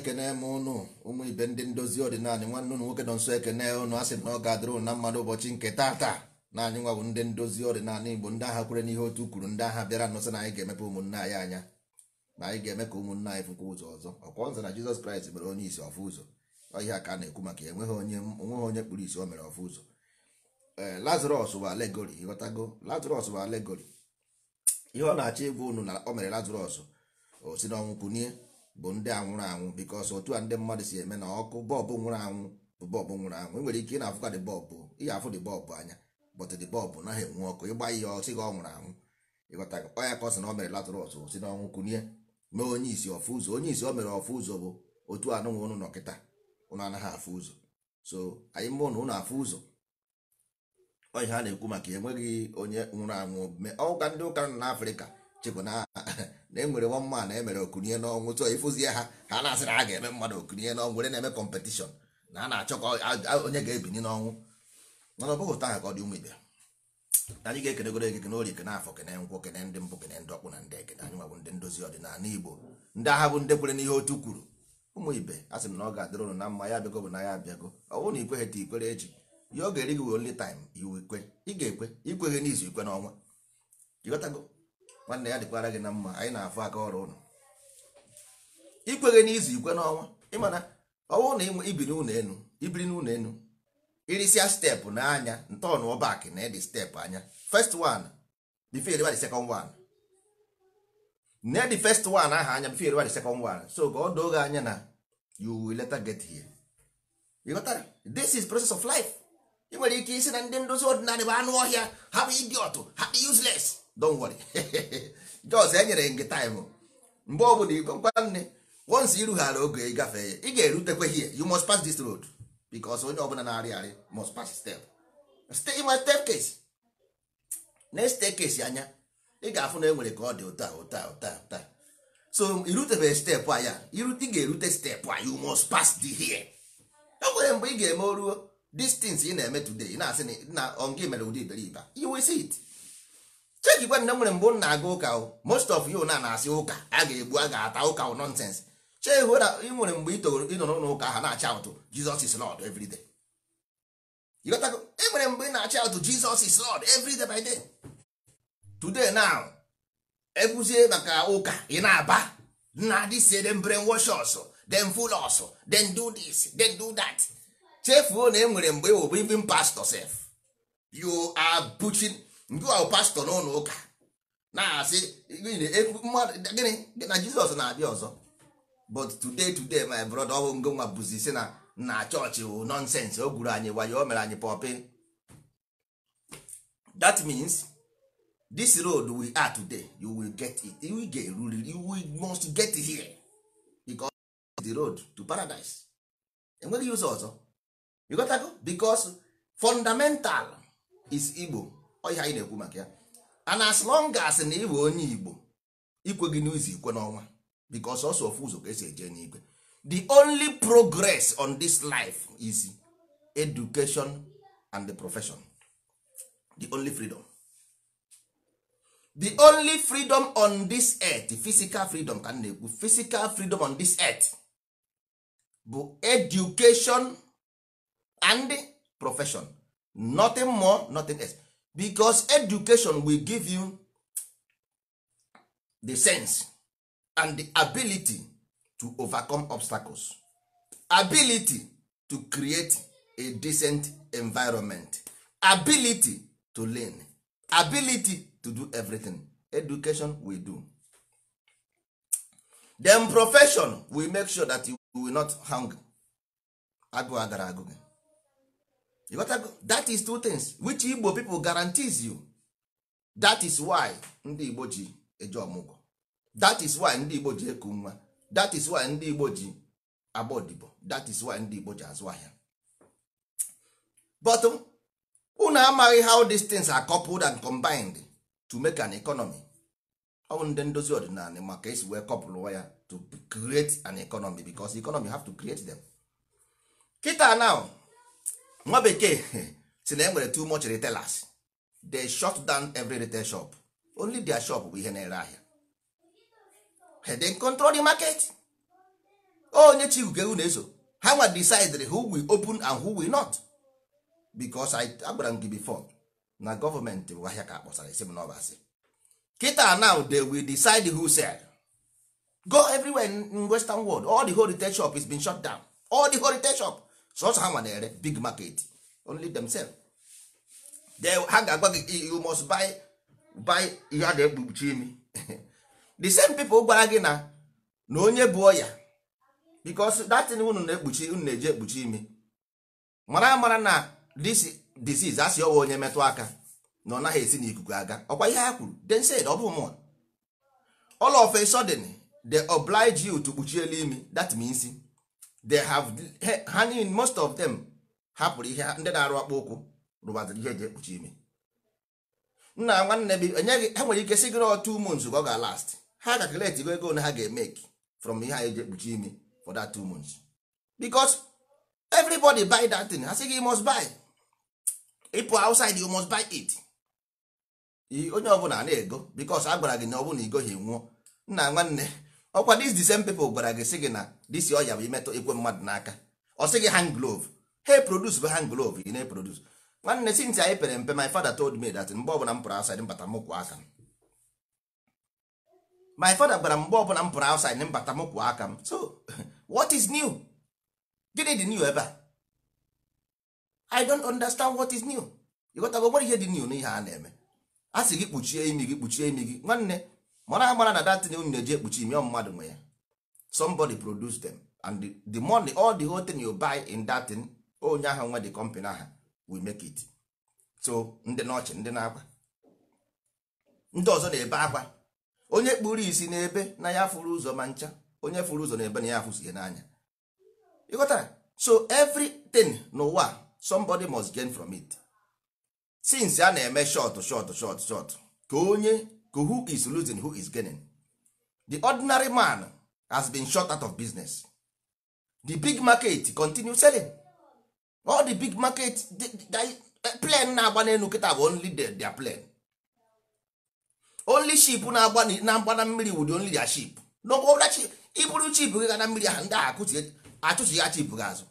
ekene m ụnụ ụmụ ibe ndị ndozi ọdịnala nwanne ụnụ nwoke nọ nso ekene ụnụ a sị na ọ ga-adịrụ na mmadụ ụbọchị nke taa na anyị nwa bụ ndị ndozi ọdịnala igbo ndị agha kwere n'ihe otu kwuru ndị agha bịara nụsị na anyị ga-emepe ụmụnne anyị anya na anyị ga-eme ka ụmụnne anyị fụkwa ụzọ ọzọ ọkwa ọzọ na jizọs kraịst mere onye isi ọfụ ụzọ ọhịa ka a na-ekwu maka ya enweghị onye onweghị onye kpụrụ isi o mere ọfụ ụzọ ee eh, lazarọs bụ alegori ịghọtago lazarọs bụ alegori ihe ọ na-achọ ịgwa ụnụ na o mere lazarọs o si n'ọnwụ kunie bụ ndị anwụrụ anwụ bikos otu a ndị mmadụ si eme na ọkụ bọlbụ nwụrụ anwụ bụ bọlbụ nwụrụ anwụ nwere ike ị na-afụka dị bọbụ ihe afụ dị bọọbụ anya bọtụ dị bọbụ naghị enwe ọkụ ịgba ihe ọsị gị ọ nwụrụ anwụ ịghọta ọnya ka ọ sị na o mere latrọs si n'ọnwụ kunye mee onye isi ọfụ ụzọ onye isi o mere ọfụ ụzọ bụ otu anụnwe ụnụ nọ ụnụ anaghị afụ ụzọ so anyị mụ na ụnụ afụ ụzọ onye ha na-ekwu maka enweghị onye nwụrụ anwụ ọka ndị ụka nọ n'afrịka chekwa na na enwere nwa mma na emere okunye n'ọnwụ tụọ ịfụzie ha ha na-asị a ga-eme mmadụ okunye n'ọnwụ were na-eme kọmpetishọn na a na-achọ ka onye ga-ebini n'ọnwụ mana ọ bụghị ụta ha ka ọ dị ụmụ ibe anyị ga-ekenegoro ekeke ori kene afọ kene nkwụ kene ndị mpụ kene ndị ọkpụ na ndị ekene anyị nwabụ ndị ndozi ọdịnala Igbo ndị agha bụ ndị kwere n'ihe otu kwuru ụmụ ibe a sị m na ọ ga-adịrị ụnụ na mma ya abịago bụ na ya abịago ọ bụrụ na ikweghị ta ikwere echi ya ọ ga-eri gị only time iwu ikwe ị ga-ekwe ikwe ikweghị n'izu ikwe n'ọnwa ịghọtago nwanne ya dịkwara gị na mma anyị na-afụ aka ọrụ ụnụ ikweghị n'izu ikwe n'ọnwa ịmana ọnwụ na ibiri n'ụlọ enu ibiri n'ụlọ enu irisia steepụ n'anya ntọọnụ ọbak na edi steepụ anya first one before you the second one na the first one aha anya before you the second one so ka ọ doo gị anya na you will later get here ịghọtara this is process of life ị nwere ike isi na ndị ndozi ọdịnala bụ anụ ọhịa ha bụ idiot ha bụ useless don't worry jos enyere gị taịmụ mgbe ọ bụla igwe nne once irughara oge ịgafee ya ị ga-erutekwe here you must pass this road because onye ọbụla na-arị arị must pass step stay in my staircase na staircase anya ị ga-afụ na enwere ka ọ dị ụta ụta ụta ụta so irutebeghị steepụ anya ya irute ga-erute steepụ a you must pass the here e nwere mgbe ị ga-eme oruo these ị na-eme today na-asị na ọ gị mere ụdị iberibe you see it cheki nwanne nwere mbụ m na-aga ụka most of you na na-asị ụka a ga-egbu a ga-ata ụka ụ nonsense chee na ị nwere mgbe ịnọ n'ụlọ ụka ha na-acha ụtụ Jesus is Lord every day e nwere mgbe ị na-acha ụtụ Jesus is Lord every by day today now ekwuzie maka ụka ị na-aba na dịsie dem brainwash us dem fool us dem do this dem do that chefuo na e nwere mgbe ịwụ bụ even pastor sef you are butching ndị ahụ pastọ n'ụlọ ụka na-asị gịnị na jizọs na-abịa ọzọ but today today my brother ọhụụ nwa bụzi si na na chọọchị wụ nọnsensị o gwuru anyị wayo o mere anyị pọpị that means this road we are today you will get it you will get you will must get here because the road to paradise enweghị ụzọ ọzọ you got to go because fundamental is Igbo ọhịa anyị na-ekwu maka ya and as long as na ịbụ onye igbo ikwe gị n'ụzọ ikwe n'ọnwa because ọsọ ofu ụzọ ka esi eje n'igwe the only progress on this life is education and the profession the only freedom the only freedom on this earth physical freedom ka na-ekwu physical freedom on this earth bụ education and profession nothing more nothing else because education will give you the sense and the ability to overcome obstacles ability to create a decent environment ability to learn ability to do everything education we do then profession will make sure that you will hang agụ agara that is two things which igbo people guarantees you that is why ndị igbo ji eje ọmụgwọ that is why ndị igbo ji eku nwa that is why ndị igbo ji agba odibo that is why ndị igbo ji azụ ahịa but unu amaghị how these things are coupled and combined to make an economy ọ bụ ndị ndozi ọdịnala maka esi wee kọpụlụwa ya to create an economy because economy have to create them. Kita now nwa bekee si na e nwere too much retailers they shut down every retail shop only their shop bụ ihe na-ere ahịa they control the market onye chi ugewu na-eso ha nwa decide who will open and who will not because I agbara m gị before na gọọmenti bụ ahịa ka akpọsara isi m n'ọbasị kịta now they will decide who sell go everywhere in western world all the whole retail shop is been shut down all the whole retail shop sọsọ ha nwa na-ere big market only themselves ha ga-agwa gị you must buy buy ihe a na-ekpuchi imi the same people gwara gị na na onye bụ ọya because that thing unu na-ekpuchi unu na-eji ekpuchi imi mara amara na this disease asị ọwa onye metụ aka na ọ naghị esi n'ikuku aga ọkwa ihe ha kwuru den say ọ bụ mụnwa all of a they oblige you to kpuchi elu imi that means they have ha niile most of them hapụrụ ihe ndị na-arụ akpa ụkwụ rụbaziri ihe eji ekpuchi ime nna nwanne bi enyeghị ha nwere ike si gịrị otu ụmụ nzu ọ ga-alast ha ga kaleti go ego na ha ga emeke from ihe a eji ekpuchi ime for that two months because everybody buy that thing ha sị you must buy ịpụ outside you must buy it onye ọbụla na-ego because a gwara gị na ọ bụ na igoghị nwụọ nna nwanne ọkwa dis the same people gwara gị sị gị na this ọya bụ imetụ ikwe mmadụ n'aka ọ sị gị hand glove he produce bụ hand glove ị na-eproduce nwanne since anyị pere mpe my father told me that mgbe ọbụla m pụrụ outside mbata m kwụ aka m my father gwara mgbe ọbụla m pụrụ outside mbata m kwụ aka m so what is new gịnị dị new ebe a i don't understand what is new ịghọtago nwere ihe dị new n'ihe a na-eme a sị gị kpuchie imi gị kpuchie imi gị nwanne mara amara na datin unu na-eji ekpuchi ime mmadụ nwe ya somebody produce them and the, money all the whole thing you buy in datin onye ahụ nwe the company aha we make it so ndị n'ọchị ndị na-akwa ndị ọzọ na-ebe akwa onye kpuru isi n'ebe na ya fụrụ ụzọ ma ncha onye fụrụ ụzọ n'ebe na ya afụzie n'anya ịghọtara so everything n'ụwa somebody must gain from it since a na-eme short short short short ka onye who is losing who is gaining the ordinary man has been shot out of business the big market continue selling all the big market plen na-agba n'elu kịta bụ only their plane only ship na-agba na mmiri wudi only their ship iburu chip gị ga na mmiri ahụ ndị ahụ ya chip gị azụ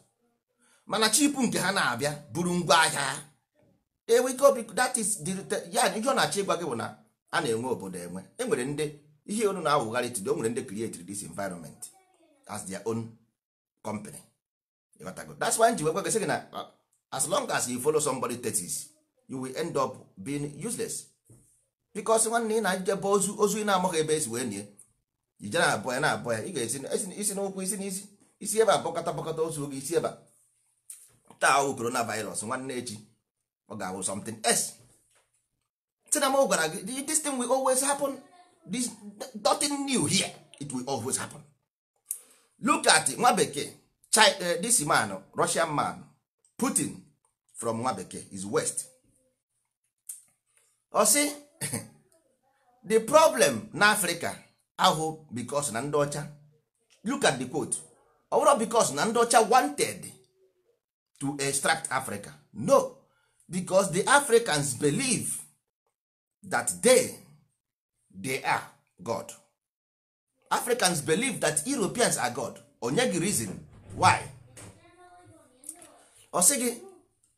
mana chip nke ha na-abịa buru ngwa ahịa ha obi that is ya ihe ọ na-achọ gị bụ na a na-enwe obodo enwe enwere ndị ihe onu na-awụgharị today o nwere ndị created this environment as their own company ịghọtago that's why nji wekwa gị na uh, as long as you follow somebody tetis you will end up being useless because nwanne ị na-ajebe ozu ozu ị na-amaghị ebe esi wee nie ije na-abụ ya na-abụ ya ị ga-esi isi n'ụkwụ isi n'isi isi ebe abọkọta bọkọta ozu oge isi ebe taa ọwụ coronavirus nwanne echi ọ ga-awụ something else Chinamo gwara gị this thing will always happen this nothing new here it will always happen. Look at nwa bekee eh, this man Russian man Putin from nwa bekee is west. Ọ oh, sị the problem na Africa ahụ because na ndị ọcha look at the quote ọ bụrụ because na ndị ọcha wanted to extract Africa no because the Africans believe that they they are god africans believe that europeans are god onye gị reason why ọ sị gị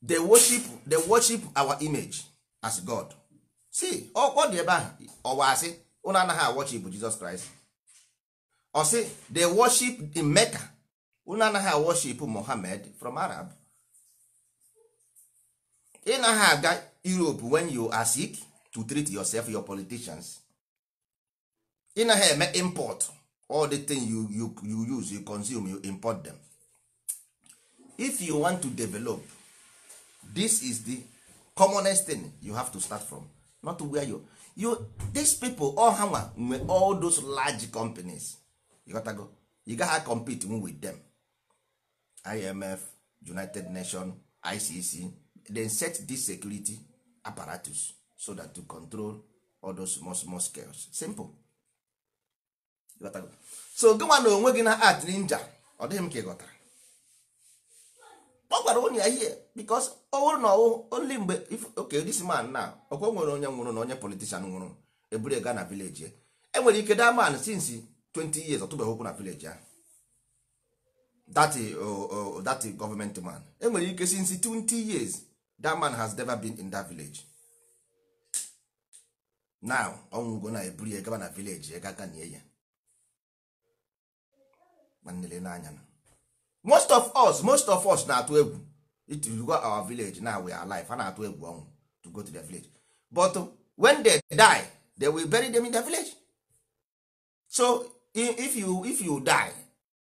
they worship they worship our image as god see ọ dị ebe ahụ ọwa asị ụnụ anaghị awọchip jesus christ Osi sị they worship in mecca ụnụ anaghị awọchip mohammed from arab ị naghị aga europe when you are sick to treat yourself your politicians ị naghị eme import all the thing you, you, you use you consume you import them if you want to develop this is the commonest thing you have to start from not wear you, you these people all ha nwe all those large companies you go you gaha compete with them imf united nations icc then set this security apparatus so that to control all those small small scales simple so gịnwa na onwe gị na art ninja ọ dịghị m ka ị ghọtara ọ gwara onye ya ihe bikos only bụrụ na ọwụ oli mgbe oke this man na ọkwa nwere onye nwụrụ na onye politician nwụrụ eburu gaa na vileji e nwere ike da man since 20 years ọtụbeghị okwu na vileji ahụ that that government man enwere ike since 20 years that man has never been in that village now ọnwụgo na eburu ya gaba na vileji ya gaka na ya na. most of us most of us na-atụ egwu go our village now we are alive a na-atụ egwu ọnwụ to go to their village but when they die they will bury them in their village so if you if you die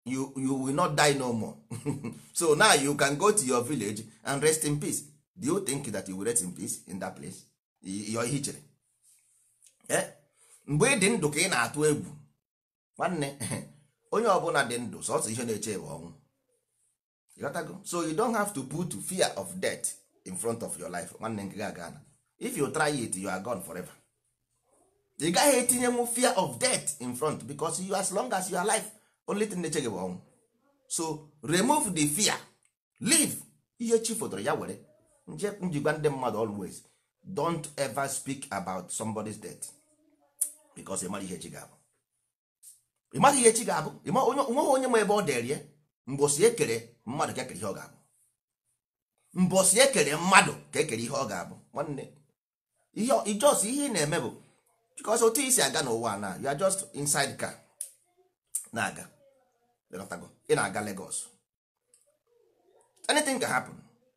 you you will not die no more so now you can go to your village and rest in peace do you think that you will rest in peace in that place your hichere mgbe ị dị ndụ ka ị na-atụ egwu nwanne onye ọbụla dị ndụ sọsọ ihe na-eche bụ ọnwụ so you don't have to put fear of death in front of your life nwanne nke ga na if you try it you are gone forever ị gaghị etinyenwu fear of death in front because you as long as you are alive only thing na-eche gị bụ ọnwụ so remove the fear leave ihe chi fotoro ya were njikwa ndị mmadụ always don't ever speak about somebody's death. because ịmara ihe echi ga-abụ ịmara ihe echi ga-abụ nweghị onye ma ebe ọ dịrị ya mbosi ekere mmadụ ka ekere ihe ọ ga-abụ mbosi ekere mmadụ ka ekere ihe ọ ga-abụ nwanne ijos ihe ị na-eme bụ because otu isi aga n'ụwa na you are just inside car na-aga ị na-aga Lagos anything ga happen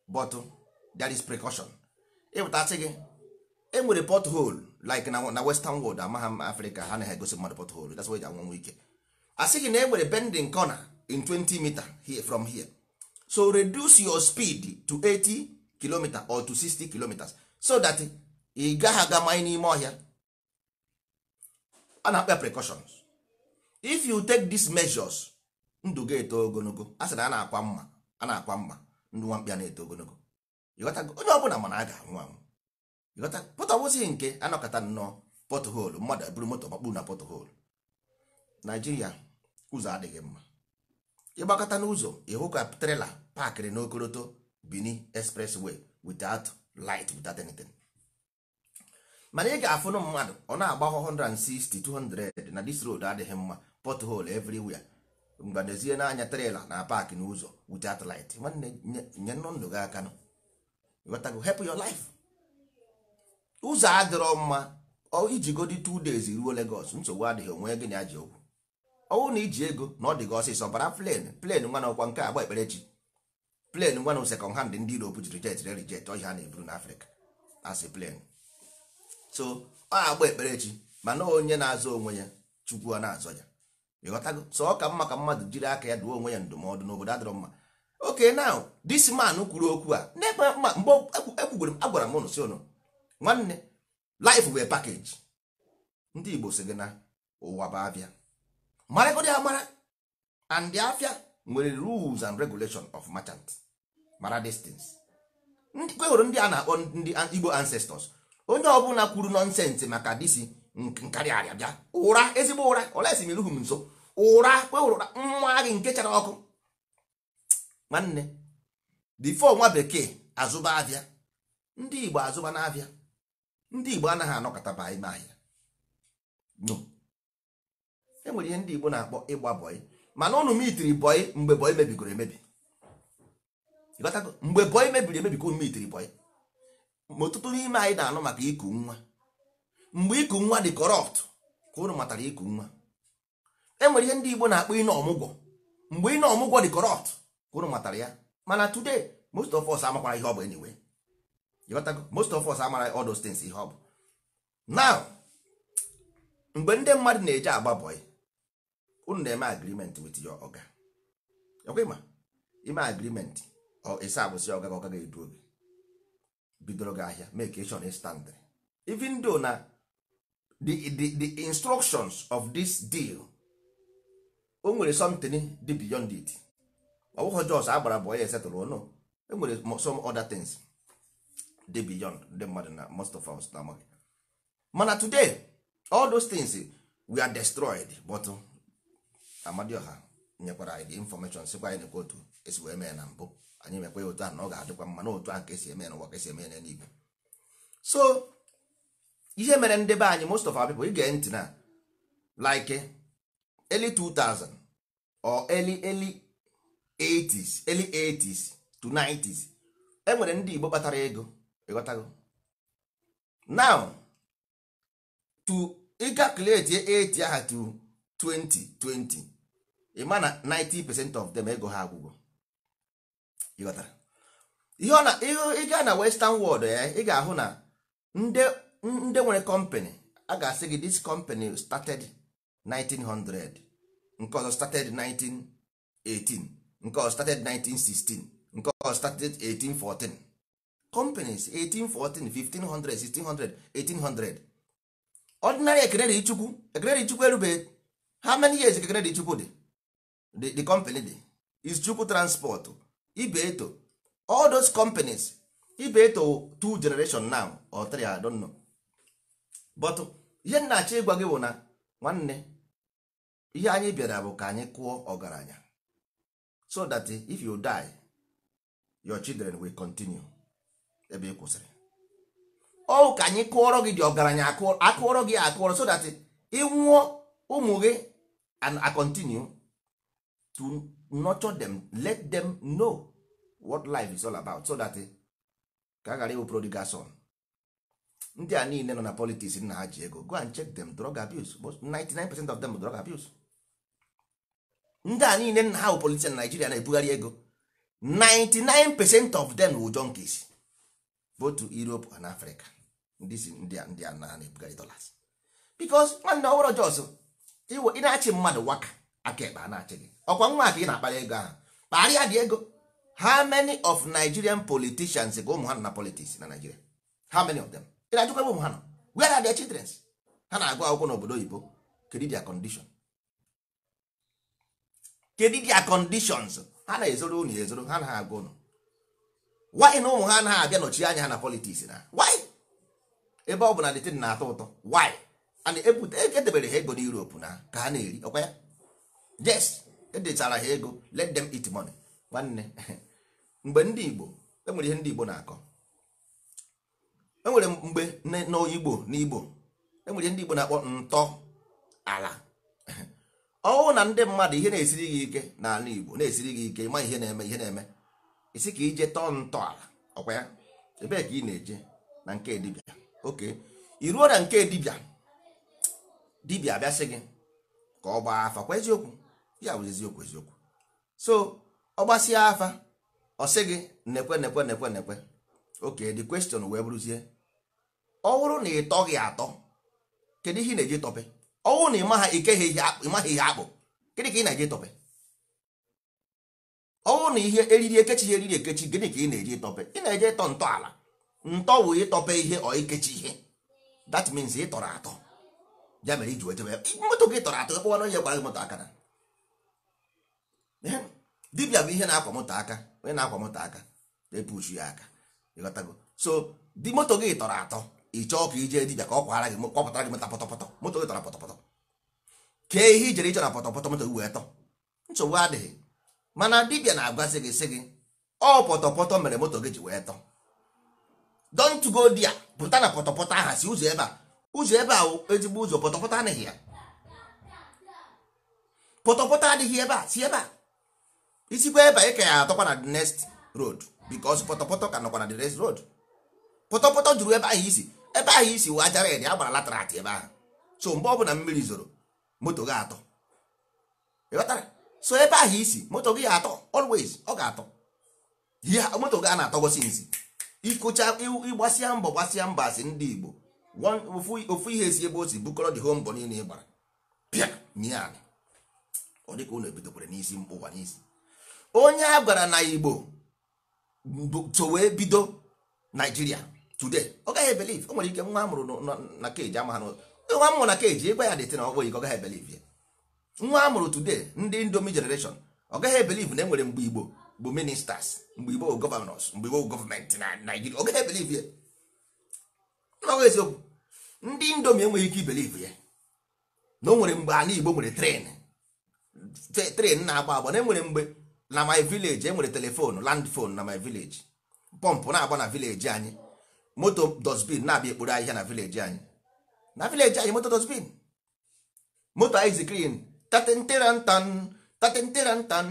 but there is precaution ịpụtasị gị enwere pothole like na na western world amaghị m africa ha na ha egosi mmadụ pothole that's why e ji anwanwe ike a na enwere bending corner in 20 meter here from here so reduce your speed to 80 km or to 60 km so that ị gaghị aga manye n'ime ọhịa a na-akpa precautions if you take these measures ndụ ga-eto ogologo a sị na a na-akwa mma a na-akwa mma ndụ nwamkpịa na-eto ogologo onye ọbụla mana a ga-anwụ anwụ pọtọ wụzighị nke anọkọta nnọọ pọtụholu mmadụ eburu moto makpuru na pọtụholu naijiria ụzọ adịghị mma ịgbakọta n'ụzọ ịhụ ka trela paakịrị n'okoroto bini expressway without light without anything mana ị ga-afụnụ mmadụ ọ na-agba 160 200 na dis road adịghị mma pothole everywhere mgbadozie n'anya trela na paakị n'ụzọ without light nwanne nye ndụ gị aka nọ hepụ life ụzọ adịrọ mma ijigodi 2 days ruo Lagos nsogbu adịghị onwe gị na ji okwu ọnwụ na iji ego na ọ dị gị ọsịsọ bara plen plen nwa na ọkwa nke agba ekpere chi plen nwa na sekọnd hand ndị Europe ji rijet re rijet ọhịa a na-eburu n'Africa asị plen so ọ agba ekpere chi mana onye na-azọ onwe ya chukwu na-azọ ya ịghọtago sọ ọ ka mma ka mmadụ jiri aka ya duo onwe ya ndụmọdụ n'obodo adịrọ mma oke na dis man kwuru okwu a na-ekpe mgbe ekwugwere m agwara m ụnụ nwanne life bụ package ndị igbo si gị na ụwa bụ abịa marakodi amara and afia nwere rules and regulation of merchant mara distance Ndị kwewere ndị a na-akpọ ndị igbo ancestors onye ọbụla kwuru nọnsensị maka disi nkarị arịa bịa ụra ezigbo ụra olesi meruhu m nso ụra kwewere nwa gị nke chara ọkụ nwanne difo nwa bekee azụba abịa ndị igbo azụba na abịa ndị igbo anaghị anọkọtaba ime ahịa no enwere ihe ndị igbo na-akpọ ịgba bọị mana ụnụ m itiri bọị mgbe bọị mebigoro emebi mgbe bọị mebiri emebi ka ụnụ m itiri bọị ma ọtụtụ n'ime anyị na-anụ maka iku nwa mgbe iku nwa dị kọrọpt ka ụnụ matara iku nwa enwere ihe ndị igbo na-akpọ ine ọmụgwọ mgbe ine ọmụgwọ dị kọrọpt ka ụnụ matara ya mana today most of us amakwara ihe ọ bụ anyway most of us amara all those things ihe ọ bụ now mgbe ndị mmadụ na-eje agba bọị unu na-eme agreement with your oga ekwema ime agreement esi abụsị oga ga ọga ga-edu oge bidoro gị ahịa make stand even though na the, the, the instructions of this deal o nwere something dị beyond it ọ bụghị jos agbara bọị esetụrụ ụnụ oh e nwere some other things dị beyond ndị mmadụ na most of us na-amaghị mana today all those things eh, we are destroyed but oh, amadioha nyekwara anyị the information sikwa anyị nekwa otu esi wee mee na mbụ anyị mekwa ya otu a na ọ ga-adịkwa mma na otu a ka esi eme n'ụwa ka esi eme ya n'igwe so ihe mere ndị be anyị most of our people ige ntị na like eh, early 2000 or early early 80s early 80s to 90s enwere ndị Igbo kpatara ego ịghọtago now to ịga kalkuleti eti aha to 2020 ịma na 90 percent of them ego ha agwụgwọ ịghọtara ihe na ịga na western world ya ị ga-ahụ na ndị nwere company a ga-asị gị this company started 1900 nke ọzọ started 1918 nke ọzọ started 1916 nke ọzọ started 1814 companies 1814 1500 1600 1800 ordinary ekenere ichukwu ekenere ichukwu erubeghị how many years ekenere ichukwu dị the, company dị is chukwu transport ibe eto all those companies ibe eto two generation now or three I don't know but ihe m na-achọ ịgwa gị bụ na nwanne ihe anyị bịara bụ ka anyị kụọ ọgaranya so that if you die your children will continue ebe ị kwụsịrị ọ ka anyị kụọrọ gị dị ọgaranya akụọrọ gị akụọrọ so that ị nwụọ ụmụ gị and I continue to nurture them let them know what life is all about so that ka a ghara ịwụ son ndị a niile nọ na politics nna ha ji ego go and check them drug abuse 99% of them drug abuse ndị a niile nna ha bụ na Nigeria na-ebugharị ego 99% of them wụ junkies votu to Europe Africa ndị si ndị a ndị a na-ebugharị dollars because nwanne ọhụrụ jos ị na-achị mmadụ waka aka ekpe a na-achị gị ọkwa nwa aka ị na-akpara ego ahụ kparịa dị ego Ha many of Nigerian politicians ga ụmụ ha na politics na Nigeria Ha many of them ị na-ajụkwa ebe ụmụ ha nọ where are their children ha na-agụ akwụkwọ n'obodo oyibo kedu their condition kedu conditions ha na-ezoro unu ezoro ha na-agụ unu why na ụmụ ha anaghị abịa nọchi anya ha na politiks na why ebe ọ bụ na detin na-atọ ụtọ why and edebere e, e ha ego na europe na ka ha na-eri ọkwa ya jes edechara ha ego let them eat money nwanne mgbe ndị igbo enwere ihe ndị igbo na-akọ enwere mgbe n'igbo n'igbo e enwere ihe ndị igbo na-akpọ ntọ ala ọwụ na ndị mmadụ ihe na-esiri gị ike n'ala igbo na-esiri gị ike ịma ihe na-eme ihe na-eme isi ka ije tọọ ntọala ọkwa ya ebee ka ị na-eje na nke dibịa oke iruo na nke dibịa dibịa bịa gị ka ọ gbaa afa kwa eziokwu ya bụ eziokwu eziokwu so ọ gbasịa afa ọ sị gị nekwe nekwe nekwe nekwe oke the question wee bụrụzie ọ bụrụ na ị tọghị atọ kedu ihe ị na-eje tọpe ọ bụrụ na ha ihe akpụ gịnị ka ị na-eje tọpe ọnwụ na ihe eriri ekechi ihe eriri ekechi gịnị ka ị na-eji ịtọpe ị na eji ịtọ ntọala ntọ bụ ịtọpe ihe ọ ikechi ihe that means ị tọrọ atọ ya mere iji wetebe moto gị tọrọ atọ ekpọwa na onye gwara gị moto aka na Dibia bụ ihe na-akwa moto aka onye na-akwa moto aka epuchu ya aka ịghọtago so di moto gị tọrọ atọ ị chọọ ka ije dibia ka ọ kwara gị kwapụtara gị mota pọtọpọtọ moto gị tọrọ pọtọpọtọ kee ihe ijere ịchọrọ pọtọpọtọ moto gị wee tọ nsogbu adịghị mana dibia na-agwazi gị sị gị ọ pọtọpọtọ mere moto gị ji wee tọ don't go pụta na pọtọpọtọ aha si ụzọ ebe a ụzọ ebe a ezigbo ụzọ pọtọpọtọ adịghị ya pọtọpọtọ adịghị ebe a si ebe a isikwa ebe a ị ka ya atọkwa na the next road because pọtọpọtọ ka nọkwa na the next road pọtọpọtọ juru ebe ahụ isi ebe ahụ isi wee ajara ede agbara latrat ebe ahụ so mgbe ọbụla mmiri zoro moto gị atọ ịghọtara so ebe ahụ isi moto gị atọ always ọ ga-atọ moto gị a na-atọgosi nzi ịkụcha ịgbasịa mbọ gbasịa mba asị ndị Igbo ofu ihe esi ebe o si bukọrọ dị home mbọ niile ịgbara gbara pịa nye ala ọ dịka unu ebidokwara n'isi mkpụwa n'isi onye a gwara na Igbo so wee bido Naijiria today ọ gaghị ebelive o nwere ike nwa amụrụ na keji ama ha nwa amụrụ na keji ịgwa ya dịtị na ọgbọ iko ọ gaghị ebelive ya nwa a mụrụ today ndị indomi generation ọ gaghị ebelive na enwere mgbe igbo bụ ministers mgbe igbo bụ gọvanọs mgbe igbo bụ gọọmenti na naijiria ọ gaghị ebelive ya n'ọgụ eziokwu ndị indomi enweghị ike ibelive ya na o nwere mgbe ana igbo nwere tren tren na-agba agba na enwere mgbe na my village enwere telefonu land na my village pọmpụ na-agba na vileji anyị moto dosbin na-abịa ekporo ahịhịa na vileji anyị na vileji anyị moto dosbin moto ice cream tatịntịrantan tatịntịrantan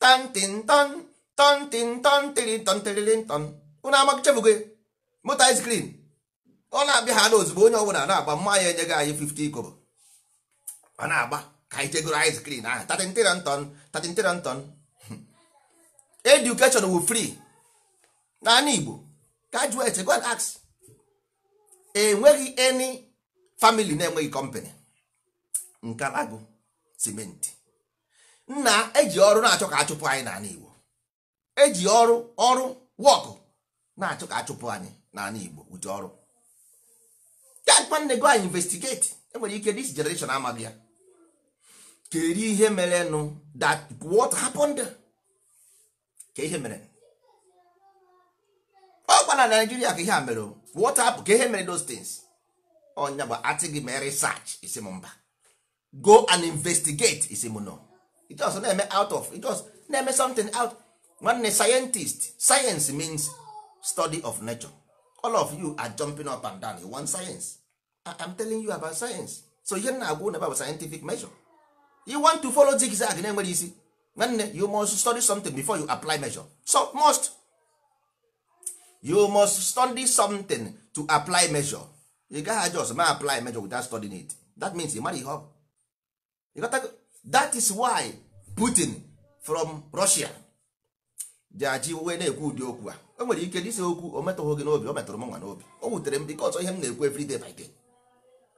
tantintan tantintan tịrịntan tịrịrịntan ụnụ amachabugo moto ice cream ọ na-abịa ha n'ozugbo onye ọbụla na-agba mma ya enyeghị anyị 50 kobo ọ na-agba ka anyị jegoro ice cream ahụ tatịntịrantan edukeshọn wu naanị Igbo graduate go enweghị eni famili na-enweghị nke alagụ. simenti nna eji ọrụ na-achọ ka achụpụ anyị n'ala Igbo eji ọrụ ọrụ wọkụ na-achọ ka achụpụ anyị n'ala Igbo ụdị ọrụ nwanne go anyị investigate enwere ike this generation amaghị ya kedu ihe mere nụ that what happened ka ihe mere ọ gwa na Nigeria ka ihe a mere what happened ka ihe mere those things ọnya bụ atị gị mee research isi m mba go and investigate isi m nọ just na-eme out of just na-eme something out nwanne scientist science means study of nature all of you are jumping up and down you want science I'm telling you about science so ihe na-agwa ụnụ about scientific measure you want to follow zigzag na-enwere isi nwanne you must study something before you apply measure so must you must study something to apply measure you gaghị just ma apply measure without studying it that means you marry ihe that is why putin from russia ji wee na-ekwu ụdị okwu a o nwere ike dịsa okwu o metụghị gị n'obi o metụrụ m nwa n'obi o wutere m dịka ọzọ ihe m na-ekwu every day by day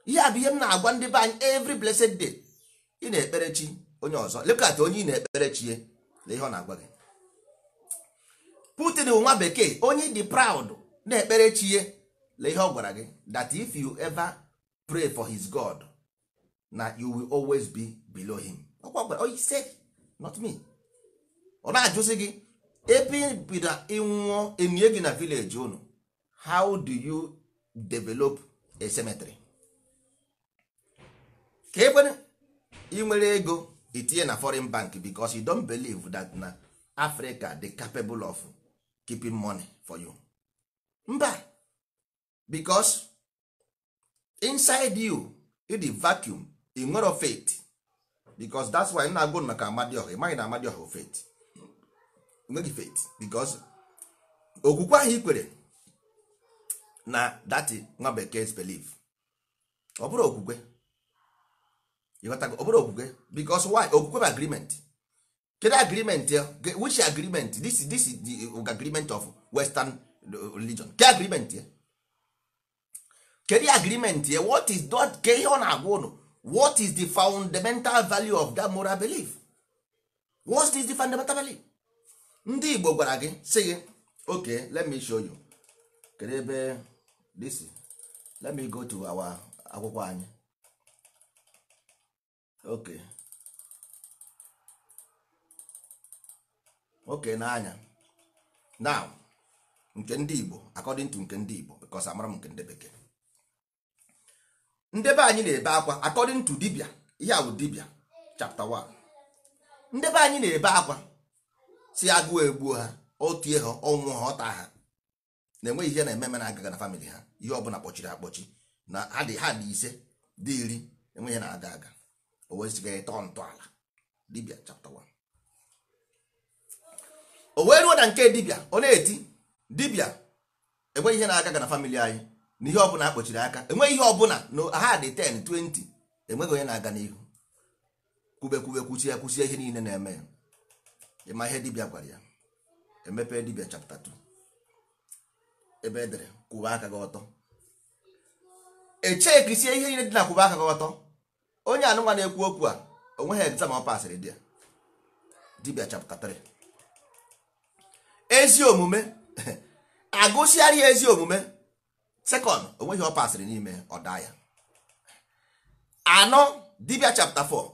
ihe a bụ ihe m na-agwa ndị be anyị every blessed day ị na ekperechi onye ọzọ lekat onye ị na ekperechie na ihe ọ na-agwa gị putin nwa bekee onye dị proud na-ekpere chie na ihe ọ gwara gị that if you ever pray for his god na you will always be below him said not me ọ na-ajụzi gị ebe bido ịnwụọ emie gị na village unu how do you develop a cemetery ka ekwere ị nwere ego itinye na foreign bank because you don't believe that na Africa the capable of keeping money for you mba because inside you in the vacuum ị nwere faith because that's why na-agụ maka Amadioha ị maghị na Amadioha bụ faith nweghị faith because okwukwe ahụ ị kwere na that nwa bekee belief ọ bụrụ okwukwe ọ bụrụ okwukwe because why okwukwe bụ agreement kedu agreement which agreement this is, the agreement of western religion ke agreement ya kedu agreement ya what is that ke ihe ọ na-agwa ụnụ what is the fundamental value of that moral belief what is the fundamental value ndị igbo gwara gị sị gị okay let me show you kedu ebe this let me go to our akwụkwọ anyị ok okay n'anya now nke ndị igbo according to nke ndị igbo because amara m nke ndị bekee ndebe anyị na-ebe akwa according to dibia ihe a dibia chapter 1 ndebe anyị na-ebe akwa si agụụ egbuo ha otie ha ọnwụ ha ọta ha na-enweghị ihe na-ememe na-agaga na famịlị ha ihe ọbụla kpọchiri akpọchi na ha dị ha dị ise dị iri enweghị na-aga aga o wezigara tọọ ntọala dibia chapter 1 o wee ruo na nke dibia ọ na-eti dibia enweghị ihe na-agaga na famịlị anyị na ihe ọbụla akpọchiri aka enweghị ihe ọbụla na ha dị 10 20 enweghị onye na-aga n'ihu kwube kwube kwuchie ya kwuchie ihe niile na-eme ya ịma ihe dibịa gwara ya emepe dibịa chapta 2 ebe edere kwụba aka gị ọtọ echekisie ihe niile dị na kwụba aka gị ọtọ onye anụnwa na-ekwu okwu a onweghị egzam ọ pasịrị di ya dibịa chapta 3 ezi omume agụsịarị ezi omume second onweghị ọ pasịrị n'ime ọ daa ya anọ dibia chapta 4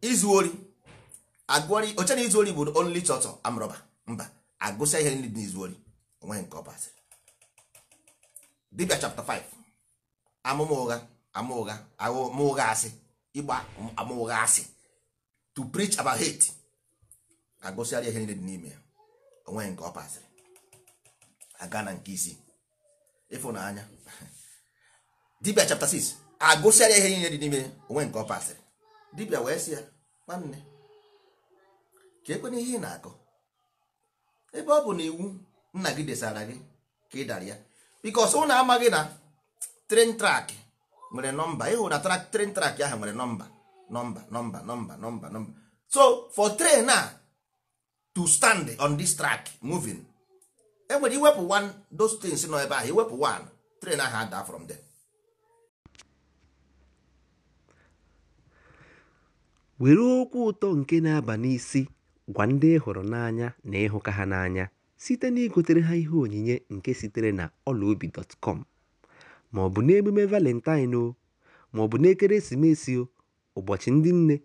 izu ori agụọrị oche na izu ori bụ only chọtọ amrọba mba agụsịa ihe ndị n'izu ori onweghị nke ọ pasịrị dibia chapta 5 amụma ụgha ama ụgha asị ịgba ama ụgha asị to preach about hate agụsịara ihe niile dị n'ime ya onweghị nke ọ pasịrị aga na nke isii ịfụnanya dibia chapter 6 agụsịara ihe niile dị n'ime onwe nke ọ pasịrị dibia wee sị ya nwanne ka ekwena ihe ị na-akọ ebe ọ bụ na iwu nna gị desara gị ka ị dara ya bikos ụnụ amaghị na tren trak nwere nọmba ịhụ na tren trak ahụ nwere nọmba nọmba nọmba nọmba nọmba nọmba so for train a to stand on this track moving enwere iwepụ one those things nọ ebe ahụ iwepụ one train ahụ ada from dem. were okwu ụtọ nke na-aba n'isi gwa ndị hụrụ n'anya na ịhụka ha n'anya site na igotere ha ihe onyinye nke sitere na ọlaobi.com ma ọ bụ n'emume valentine o ma ọ bụ n'ekeresimesi o ụbọchị ndị nne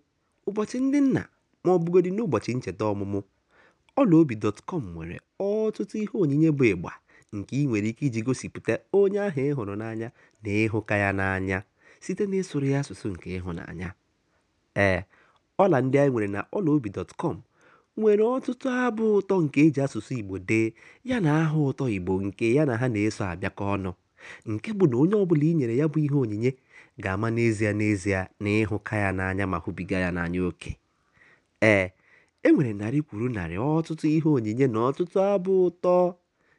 ụbọchị ndị nna ma ọ n'ụbọchị ncheta ọmụmụ Ọlaobi.com nwere ọtụtụ ihe onyinye bụ ịgba nke ị nwere ike iji gosipụta onye ahụ ịhụrụ n'anya na ịhụka ya n'anya site n'ịsụrụ ya asụsụ nke ịhụnanya. Ee, ọla ndị anyị nwere na Ọlaobi.com nwere ọtụtụ abụ ụtọ nke e ji asụsụ Igbo dee yana aha ụtọ Igbo nke ya na ha na-eso abịakọ ọnụ, nke bụ na onye ọbụla i nyere ya bụ ihe onyinye ga-ama n'ezie n'ezie na ịhụka ya n'anya ma hụbiga ya n'anya oke. Ee, E nwere narị kwuru narị ọtụtụ ihe onyinye na ọtụtụ abụ ụtọ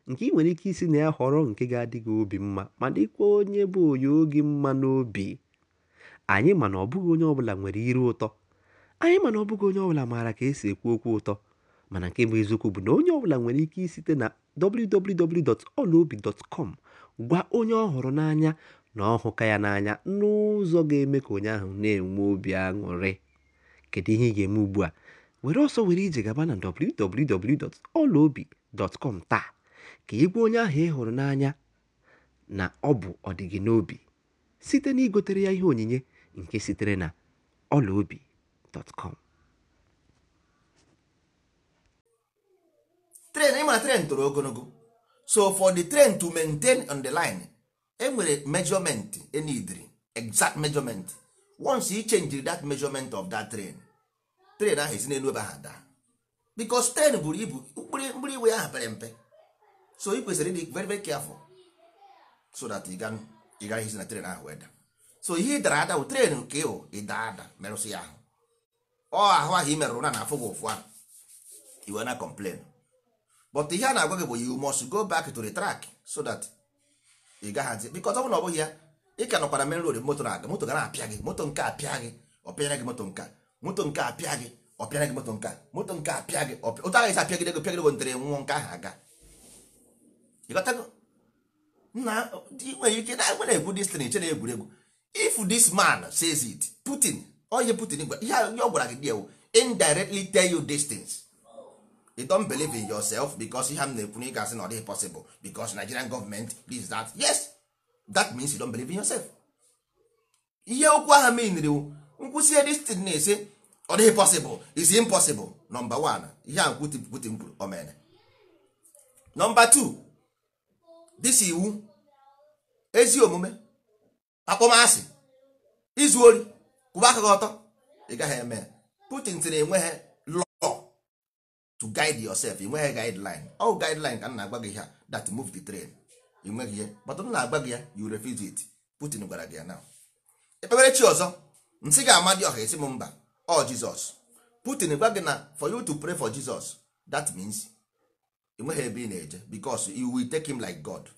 nke ị nwere ike isi na ya họrọ nke ga-adị gị obi mma ma dịkwa onye bụ onye oge mma n'obi anyị mana ọbụghị onye ọbụla nwere iru ụtọ anyị mana ọbụghị onye ọbụla maara ka esi ekwu okwu ụtọ mana nke bụ eziokwu bụ na onye ọbụla nwere ike isite na www.olaobi.com gwa onye ọ hụrụ n'anya na ọhụka ya n'anya n'ụzọ ga-eme ka onye ahụ na-enwe obi aṅụrị kedu ihe ị ga-eme ugbu a were ọsọ were ije gaba na www.olaobi.com taa ka ị gwa onye ahụ ị hụrụ n'anya na ọ bụ ọdịgị n'obi site na igotere ya ihe onyinye nke sitere na olaobi.com tren ịma tren toro ogologo so for the train to maintain on the line enwere measurement enidri exact measurement once you change that measurement of that train tren ahụ esi n'elu ebe ahụ daa bikos ten buru ibu mkpụrụ iwe ahụ pere mpe so ị kwesịrị ịdị very very careful so that ị gaghị esi na tren ahụ wee daa so ihe ị dara ada bụ tren nke ịwụ ịda ada merụsị ya ahụ ọ ahụ ahụ ị merụrụ na na-afụ gị ụfụ ahụ iwe na complain but ihe a na-agwa gị bụ you must go back to the track so that ị gaghazi bikos ọ bụrụ na ọ bụghị ya ị ka nọkwara merụrụ moto na-aga moto ga na-apịa gị moto nke apịa gị ọ pịara gị moto nke a. moto nke a gị ọ pịara gị moto nke a moto nke a gị otu agaghị esi gị pịagide gị ntere nwụọ nke ahụ aga na nwere ike na nwere egwu destin eche na egwuregwu if this man says it Putin onye Putin gwa ihe ọ gwara gị diewu indirectly tell you these things you don't believe in yourself because ihe m na-ekwu na ị gasị na ọ dịghị Nigerian that yes that means you don't believe in yourself ihe okwu ahụ nkwụsị nkwụsie destin na-ese ọ dịghị pọsịbụl is impossible nọmba 1 ihe a nkwuti mkpụrụ o mere nọmba 2 disi iwu ezi omume akpọmasị izu ori kwụba aka gị ọtọ ị gaghị eme Putin tiri enweghị law to guide yourself inweghị e guideline ọ guideline ka m na-agwa gị ihe that move the train enweghị ihe but m na-agwa gị ya you refuse it Putin gwara gị ya na ekpebere chi ọzọ nsị ga dị ọha esi m mba ọ jizọs putin gwa gị na for you to pray for jesus that means enweghị ebe ị na-eje because you will take him like god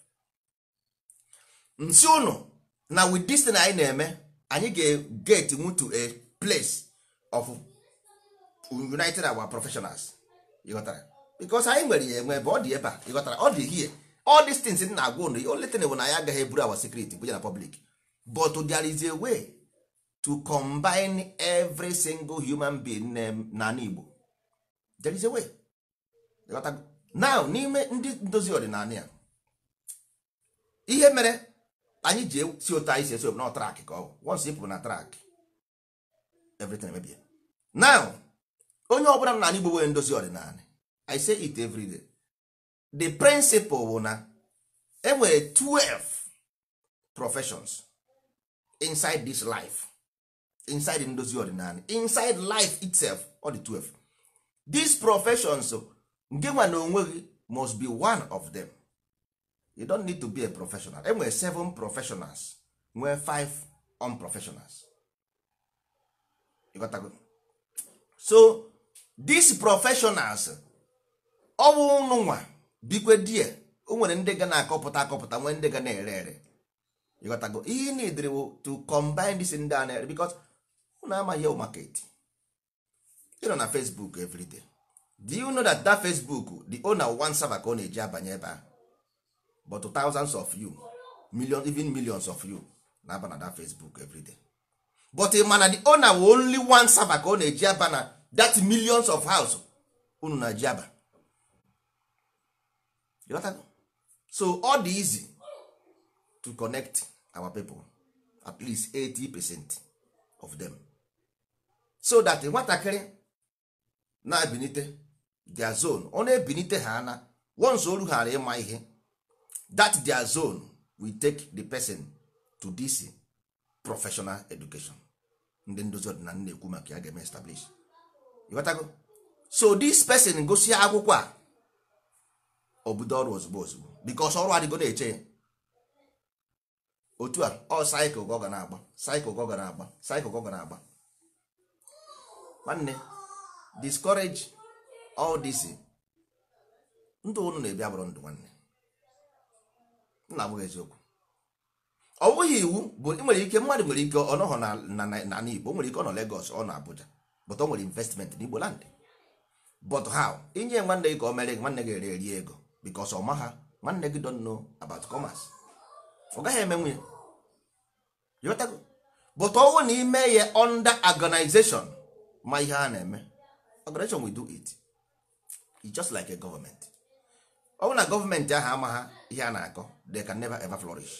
nsị unu na with this thing anyị na-eme anyị ga-get nwu to a place of united our professionals ịghọtara because anyị nwere ya enwe ebe ọ dị ebe a ịghọtara ọ dị hie all these things na-agwa ụnụ only thing bụ na anyị agaghị eburu our secret bụ ya na public but there is a way to combine every single human being na Igbo there is a way now n'ime ndị ndozi ọdịnala ya ihe mere anyị ji si otu anyị si esi na trak ka ọ once ị na trak everything mebie now onye ọbụla n'ala Igbo nwere ndozi ọdịnala I say it every day the principle bụ na enwere 12 professions inside this life inside ndozi ọdịnala inside life itself ọ dị 12 these professions oh, nke nwa na onwe gị must be one of them you don't need to be a professional enwere seven professionals nwee five unprofessionals so these professionals ọ bụ ụnụ nwa bikwe die o nwere ndị ga na-akọpụta akọpụta nwee ndị ga na-ere ere ịghọtago ihe ị na-edere to combine this ndị a na-ere because unu amaghị o market ị nọ na facebook everyday do you know that that facebook the owner one server ka ọ na-eji abanye ebe but thousands of you millions even millions of you na-aba na that facebook everyday but ị mana the owner wụ only one server ka ọ na-eji aba na that millions of house unu na-eji aba so all di easy to connect our people at least 80 percent of them so that nwatakịrị na-ebinite their zone ọ na-ebinite ha ana once oru ghara ịma ihe that their zone we take the person to this professional education ndị ndozi ọdịnala na-ekwu maka ya ga-eme establish ịghọtago so this person gosi akwụkwọ a obodo ọrụ ozugbo ozugbo because ọrụ adịgo na-eche ya otu a ọ cycle ga na-agba cycle ga na-agba cycle gọga na-agba nwanne discourage all this ndụ unu na-ebi abụrụ ndụ nwanne nna abụghị eziokwu ọ bụghị iwu bụ nwere ike mmadụ nwere ike ọ nọghọ na Igbo nwere ike ọ nọ Lagos ọ nọ Abuja but ọ nwere investment n'Igbo land but how inye nwanne gị ka o mere nwanne gị ere eri ego because ọ maha nwanne gị don't know about commerce ọ gaghị eme nwunye but ọ bụrụ na ime ya under organization ma ihe a na-eme operation we do it e just like a government ọ bụ na gọọmenti ahụ hama ha ihe a na-akọ they can never ever flourish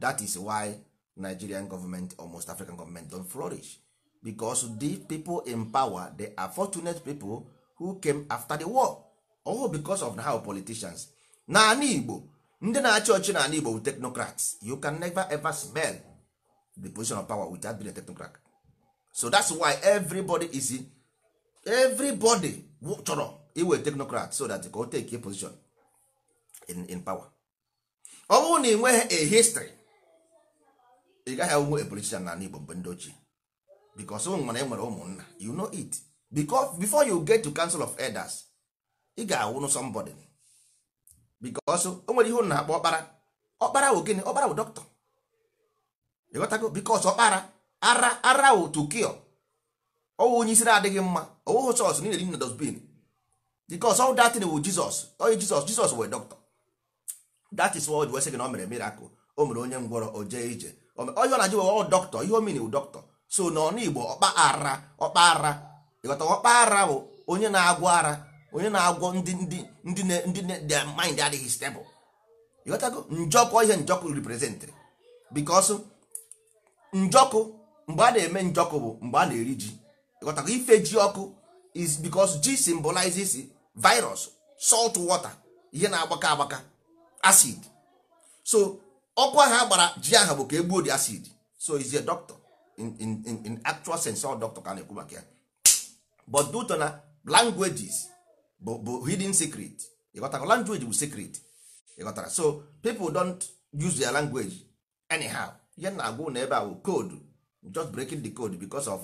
that is why nigerian government or most african government don flourish because the people in power they are fortunate people who came after the war all because of how politicians naanị igbo ndị na-achị ọchị naanị igbo technocrats you can never ever smell the position of power without being a technocrat so that's why everybody is everybody chọrọ iwe technocrat so that ka take a position in, in power ọ bụrụ na ị a history ị gaghị ahụhụ a politician na Igbo mgbe ndị ochie because ụmụ mana enwere e nwere ụmụnna you know it because before you get to council of elders ị ga-awụnụ somebody because o nwere ihe ụnụ na-akpọ ọkpara ọkpara gịnị ọkpara bụ doctor ịghọtago ọkpara ara ara otu kio ọwụ onye isi na-adịghị mma ọwụghị sọs niile dị na dosbin bikos ọl datin wu jizọs onye jizọs jizọs wee dọkịta dat is wod wesị na o mere mirakụl o mere onye ngwọrọ o jee ije onye ọ na-ajụ wụ dọkịta ihe omini wụ dọkịta so na ọnụ igbo ọkpa ara ọkpa ara ịghọta ọkpa ara bụ onye na-agwọ ara onye na-agwọ ndị ndị ndị ndị the mind adịghị stebụl ịghọtago njọkụ ihe njọkụ reprezentịrị bikos njọkụ mgbe a na-eme njọkụ bụ mgbe a na-eri ji ịghọtakwa ife ji ọkụ is because ji symbolizes virus salt water ihe na-agbaka agbaka acid so ọkụ ahụ a gbara ji ahụ bụ ka egbuo di acid so is a doctor in, in, in, in actual sense ọ doctor ka na-ekwu maka ya but duto na languages bụ bụ hidden secret ịghọtara language bụ secret ịghọtara so people don't use their language anyhow ihe na-agwụ na ebe a bụ koodu just breaking the code because of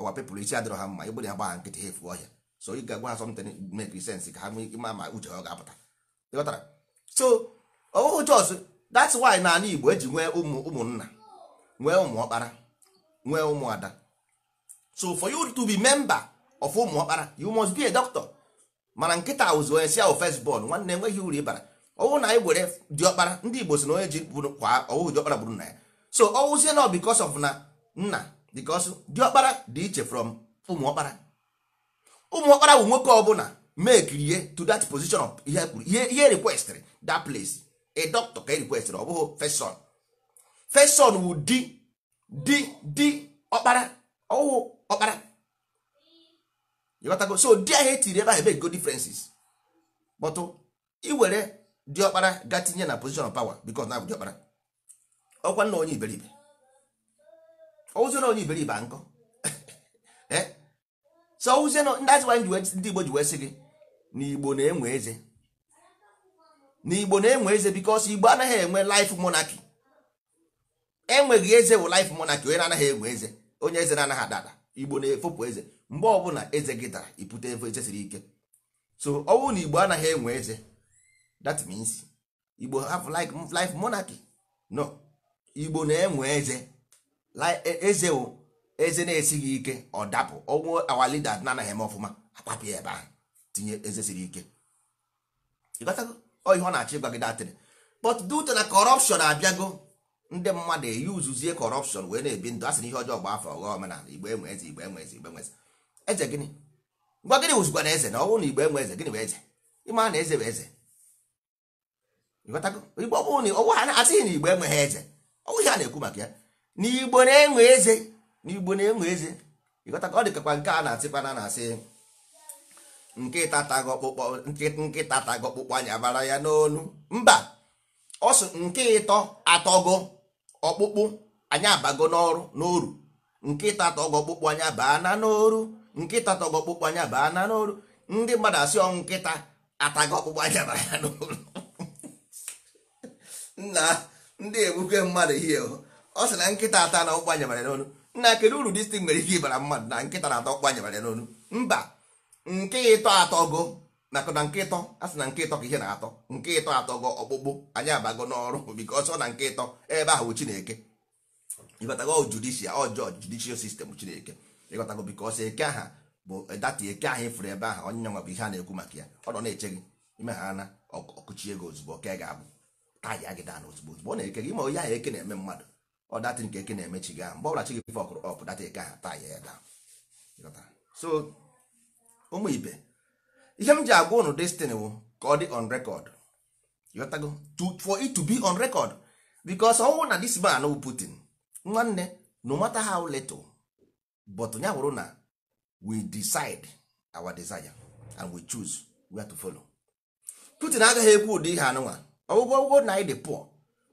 our people isi adịrọ ha mma igbere ha gbagha nkịtị ha efu ọhịa so ị ga-agwa ha something make sense ka ha nwee ma ma uche ha ọ ga-apụta ịghọtara so ọwụhụ oh, jos that's why na ala igbo eji nwee ụmụ ụmụnna nwee ụmụ ọkpara nwee ụmụada so for you to be member of ụmụ ọkpara you must be a doctor mana nkịta ụzụ onye si ahụ first born nwanne enweghị uru ịbara ọwụ na anyị e were diọkpara ndị igbo si na onye ji kwa ọwụhụ diọkpara gburu na ya so ọwụzie na because of na nna because diọkpara dị iche from ụmụọkpara ụmụọkpara bụ nwoke ọbụla make to that position of ihe e kwuru ihe e requestịrị that place a doctor ka e requestịrị ọ bụghị first son first son wụ di di di ọkpara ọwụ ọkpara ịghọtago so di ahụ etiri ebe ahụ ebe e go differences but iwere ọkpara ga tinye na position of power because na bụ ọkpara ọkwa nna onye iberibe na onye iberibe nkọ eh? so na ndị azị anyị ndị igbo ji wee sị gị Igbo na-enwe eze Na Igbo na-enwe eze bikos igbo anaghị enwe life monarchy enweghị eze wụ life monarchy onye na-anaghị enwe eze onye eze na-anaghị adada igbo na-efopụ eze mgbe ọbụla eze gị dara ipute efo eze siri ike so ọ bụrụ na igbo anaghị enwe eze Dat means igbo have like life monarchy no igbo na-enwe eze E, eze eze na esi gị ike ọ dapụ ọnwụ awa lida na-anaghị eme ọfụma akpapụ ya ebe ahụ tinye eze siri ike ọ ihe ọ na achị gwa gị datịrị but due to na corruption abịago ndị mmadụ eyuzuzie corruption wee na-ebi ndụ a sị na ihe ọjọọ gba afọ ọghọ omenala igbo enwe eze igbo enwe eze igbo enwe eze eze gịnị gwa gịnị wụzikwa na eze na ọnwụ na igbo enwe eze gịnị bụ eze ịma na eze bụ eze igbo ọbụrụ na ọwụ ha asịghị na igbo enweghị eze ọwụ ihe a na-ekwu maka ya n'igbo na-enwe eze n'igbo na-enwe eze ịghọta ọ dịkakwa nke a na-asịkwa na na-asị nkịta tago ọkpụkpọ nkịta ya n'onu mba ọ nke ịtọ atọgo ọkpụkpụ anya abago n'ọrụ n'oru nkịta tọgọ ọkpụkpụ anya baa na n'oru nkịta tọgọ ọkpụkpụ anya baa na n'oru ndị mmadụ asị ọnwụ nkịta atago ọkpụkpụ anya bara ya n'oru nna ndị egbuke mmadụ ihe ọ sị na nkịta ata na ọkpụ anyabara n'onu nna kedu uru distin nwere ike ịbara mmadụ na nkịta na atọ ọkpụ anyabara n'onu mba nke ịtọ atọgo nakụ na nke ịtọ a sị na nke ịtọ ka ihe na-atọ nke ịtọ atọ atọgo ọkpụkpụ anyị abago n'ọrụ biko ọsọ na nke ịtọ ebe ahụ chineke ịgọtago judishia ọjọọ judishia sistem chineke ịghọtago biko ọsọ eke aha bụ data eke ahụ ịfụrụ ebe ahụ onye nwa bụ ihe a na-ekwu maka ya ọ nọ na-eche gị ime ha na ọkụchi ego ozugbo ka ga-abụ taya gị daa na ozugbo ozugbo ọ na-eke gị ma onye ahụ eke na-eme mmadụ ọ datị nke eke na-emechi gị ahụ mgbe ọbụla chi gị fọkụrụ ọpụ data eke ahụ taa ya ebe so ụmụ ibe ihe m ji agwa ụnụ destiny wụ ka ọ dị on record yotago for it to be on record because ọnwụ na dis man bụ Putin nwanne no matter how little but ya wụrụ na we decide our desire and we choose where to follow Putin agaghị ekwu ụdị ihe anụnwa ọgwụgwọ ọgwụgwọ na anyị dị poor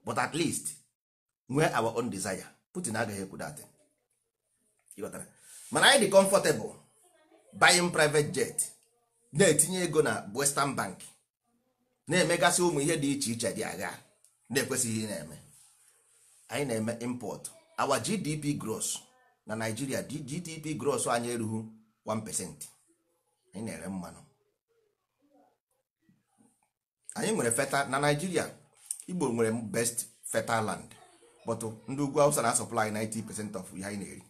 but at least nwee our own desire Putin agaghị ekwu dat mana anyị dị comfortable buying private jet na-etinye ego na Western Bank na-emegasị ụmụ ihe dị iche iche dị agha na-ekwesịghị na-eme anyị na-eme import our GDP gross na Nigeria GDP gross anyị erughị 1% anyị na-ere mmanụ anyị nwere feta na Nigeria Igbo nwere best feta land but uh, ndị ugwu awụsa na supply 90% of ihe anyị na-eri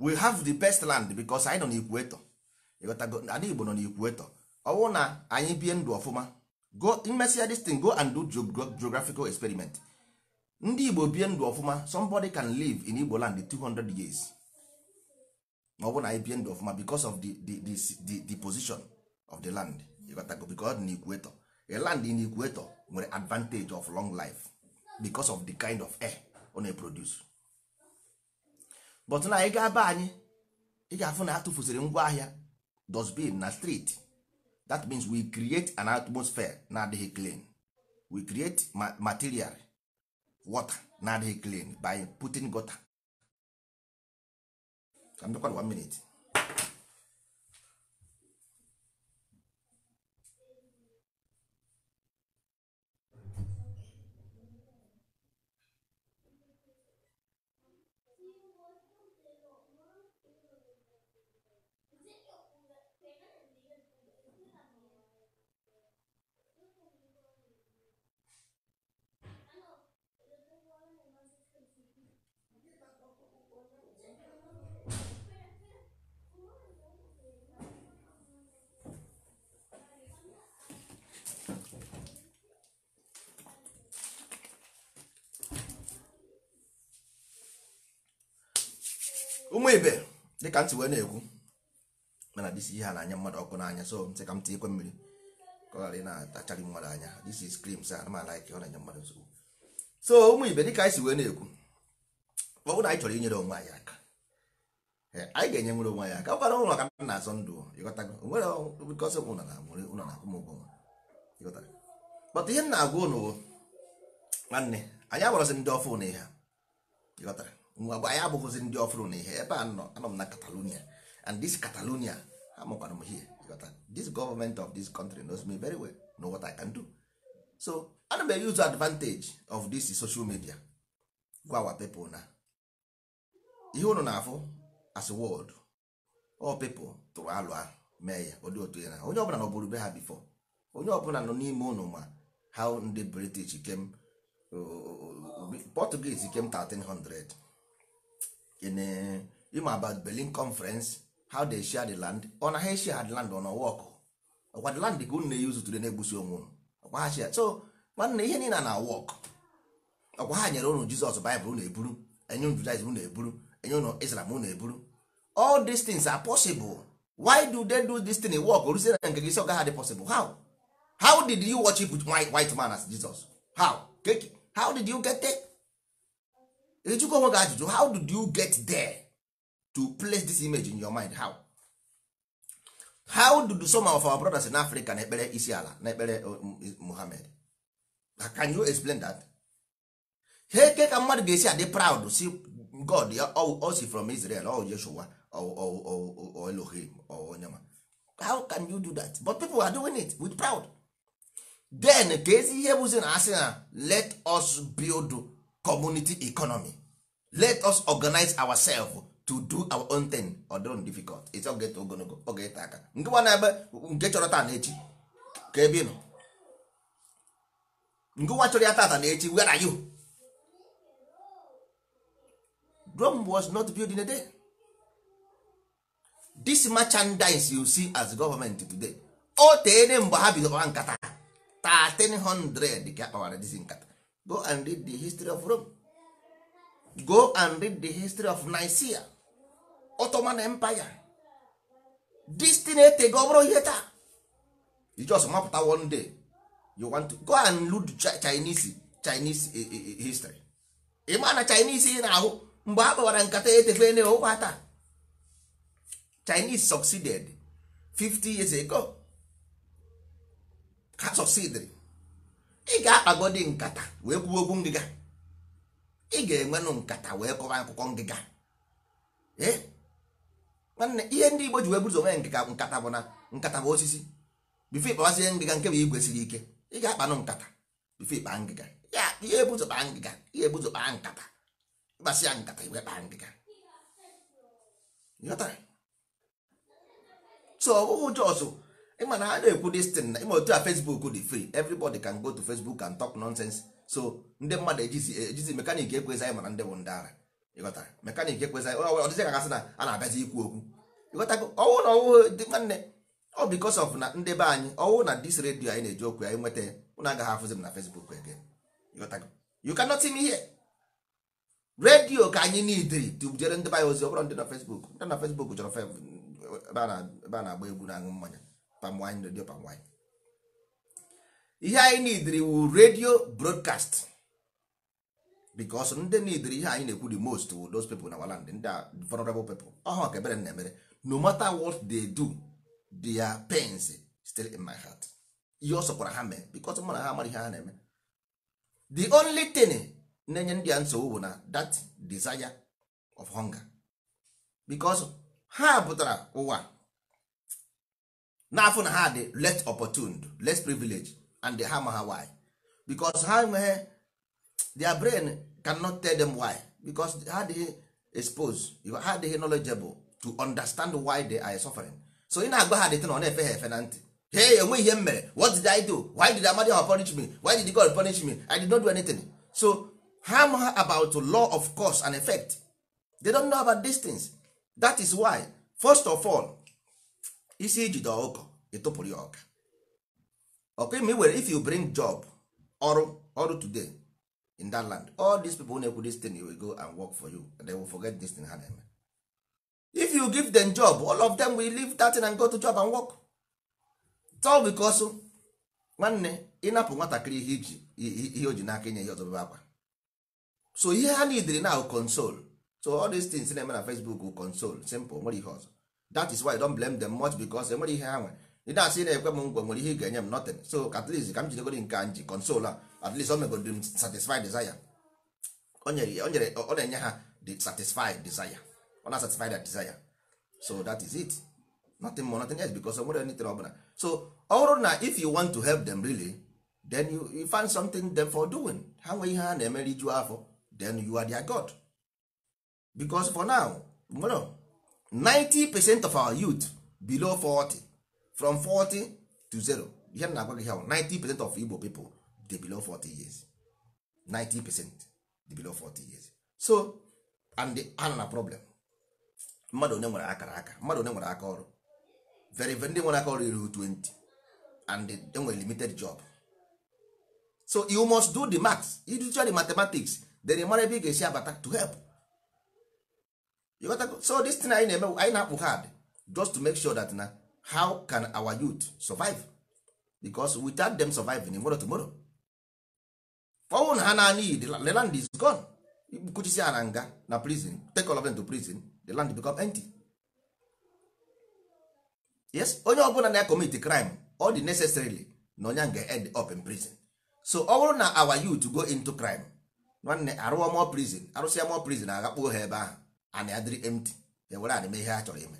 we have the best land because anyị nọ n'ikwueto ịghọtago Igbo nọ n'ikwueto ọ bụrụ na anyị bie ndụ ọfụma go imesịa this go and do geographical experiment ndị Igbo bie ndụ ọfụma somebody can live in Igbo land 200 years ọ bụrụ na anyị bie ndụ ọfụma because of the, the, position of the land ịghọtago because dị n'ikweto a land in nwere advantage of long life because of the kind of air ọ na-eproduce but na ị ga-aba anyị ị ga-afụ na atụfuziri ngwa ahịa dustbin na street that means we create an atmosphere na-adịghị clean we create material water na-adịghị clean by putting gutter. one minute. ụmụ ibe dịka ntị wee na-ekwu mana disi ihe a na-anya mmadụ ọkụ n'anya so ntị ka m tị ikwe mmiri ka ọ ghara ị na-atacharị mmadụ anya this is creams a ma like ọ na-anya mmadụ nsogbu so ụmụ ibe dịka anyị si wee na-ekwu ọ bụrụ na anyị chọrọ inyere onwe anyị aka eh, anyị ga-enye nwere onwe anyị aka ọkwara ụlọ ka na-azọ ndụ ịghọtago nwere bikọsị ụlọ na nwere ụlọ na akwụm ụgwọ ịghọtara kpọta ihe m na-agwa ụnụ nwanne anyị agbarọsị ndị ọfụ na ihe ịghọtara nwa mgbe anyị abụghịzi ndị ọfụrụ na ihe ebe a nọ anọ m na Catalonia and this Catalonia amụkwara m here this government of this country knows me very well know what I can do so ana m use advantage of this social media gwa our people na ihe unu na-afụ as world all people tụrụ alụ ahụ mee ya ụdị otu ya na onye ọbụla bụrụ be ha bifo onye ọbụla nọ n'ime ụnụ ma how ndị British came uh, uh, uh, Portuguese came 1300 in ịma eh, about Berlin conference how they share the land ọ na ha share the land on work ọkwa the land ka unu na-eyuzu today na-egbusi onwe unu ọkwa ha share so nwanne ihe niile na work ọkwa ha nyere unu Jizọs Baịbụl unu eburu enye unu Judaism unu eburu enye unu Islam unu eburu all these things are possible why do they do this thing work oruzie na nke gị si gaghị adị possible how how did you worship with white man as Jesus how how did you get it? ịjụkwa onwe gị ajụjụ how did you get there to place this image in your mind how how did some of our brothers in africa na ekpere isi ala na ekpere uh, muhammad can you explain that ha eke ka mmadụ ga-esi adị proud si god ya si from israel o yeshua o elohim o onyema how can you do that but people are doing it with proud then ka ezi ihe bụzi na asị na let us build community economy let us organize ourselves to do our own thing ọdụrụ difficult it's oge ta aka nke na-ebe nke chọrọ taa na echi ka ebe nọ nke nwa chọrọ ya tata na echi were are you Rome was not building in a day this merchandise you see as government today o teene mgbe ha bidoro nkata 1300 ka akpawara dizi nkata go and read the history of rome go and read the history of nigeria ottoman empire this thing etego bụrụ ihe taa you just mapụta one day you want to go and read chinese chinese eh, eh, eh, history ị ma na chinese ị na-ahụ mgbe ha kpawara nkata etefe na ụkwa taa chinese succeeded 50 years ago ha succeeded ị ga-akpagodi nkata wee kwuo okwu ngịga ị ga-enwenụ nkata wee kọwa akụkọ ngịga nwanne ihe ndị Igbo ji wee buzo onwe ngịga nkata bụ na nkata bụ osisi bifo ịkpawazie ngịga nke bụ igwe ike ị ga-akpanụ nkata bifo ịkpa ngịga ya ihe kpaa ngịga ihe ebuzo kpaa nkata ya nkata iwe kpaa ngịga so ọ bụghị jọsụ ị na a na-ekwu dis tin na ịma otu a facebook dị fri everybody can go to facebook and talk nonsense so ndị mmadụ ejizi ejizi mekanik ekwezi anyị mana ndị bụ ndị ara ịghọtara mekanik ekwezi anyị ọ ka gasị na a na-abịazi ikwu okwu ịghọtago ọwụ na ọwụ dị nwanne ọ bikos of na ndị anyị ọwụ na dis redio anyị na-eji okwu anyị nweta agaghị afụzi m na facebook you cannot see me here redio ka anyị niidiri tubujere ndị baya ozi ọ bụrụ ndị na ndị na ebe a na-agba na aṅụ mmanya palm wine radio palm wine ihe anyị idiri wu radio broadcast because ndị idiri ihe anyị na-ekwu di most wu those people na waland ndị vulnerable people ọha ka ebere na-emere no mata what dey do dia pains still in my heart ihe ọ sọkwara ha mee because mụ na ha amara ihe ha na-eme the only thing na-enye ndị a nsogbu bụ na that desire of hunger because ha pụtara ụwa n'afọ na ha dị let opportuned less privilege and ha ma ha why because ha enweghị their brain cannot tell them why because ha dey expose ha dey knowledgeable to understand why they are suffering so ị na-agba ha dịtị na ọ na-efe ha efe na ntị hey enweghị ihe m mere what did I do why did Amadi ha punish me why did God punish me I did not do anything so ha ma ha about law of cause and effect they don't know about these things that is why first of all isi ijide ọkụkọ ịtụpụrụ ya ọka ọka ma i if you bring job ọrụ ọrụ today in that land all these people na-ekwu this thing will go and work for you and they will forget this thing ha na-eme if you give them job all of them will leave that thing and go to job and work tol because nwanne ịnapụ nwatakịrị ihe o ji n'aka inye ọzọ ọzọbebe akwa so ihe ha nidiri na console so all these things na-eme na Facebook console simple nwere ihe ọzọ that is why I don't blame them much because enwere ihe ha nwere ị na-asị na-ekwe m ngwa nwere ihe ị ga-enye m nothing so at least ka m jidegoro nke a nji consol a at least o megodi m satisfied desire o ọ na-enye ha the satisfied desire ọ na-satisfy that desire so that is it nothing more nothing else because enwere anything ọbụla so ọ bụrụ na if you want to help them really then you, you find something them for doing ha nwee ihe ha na emeri iju afọ then you are their god because for now no 90 percent of our youth below 40 from 40 to 0 ihe na-agwa gị ha 90 percent of Igbo people dey below 40 years 90 percent dey below 40 years so and ha na problem mmadụ one nwere akara aka mmadụ onye nwere aka ọrụ very very ndị nwere aka ọrụ iru 20 and enwere limited job so you must do the maths you do the mathematics then mara ebe ị ga-esi abata to help so this thing anyị na-eme anyị na-akpụ hard just to make sure that na how can our youth survive because without them surviving in tomorrow tomorrow ọnwụ na ha naanị the land is gone kuchisi ha na nga na prison take all of them to prison the land become empty yes onye ọbụla na-commit crime all dị necessarily na onye nga end up in prison so ọ bụrụ na our youth go into crime nwanne arụọ mọ prison arụsịa mọ prison aghakpuo ha ebe ahụ and ya dịrị empty ya were adịme ihe ha chọrọ ime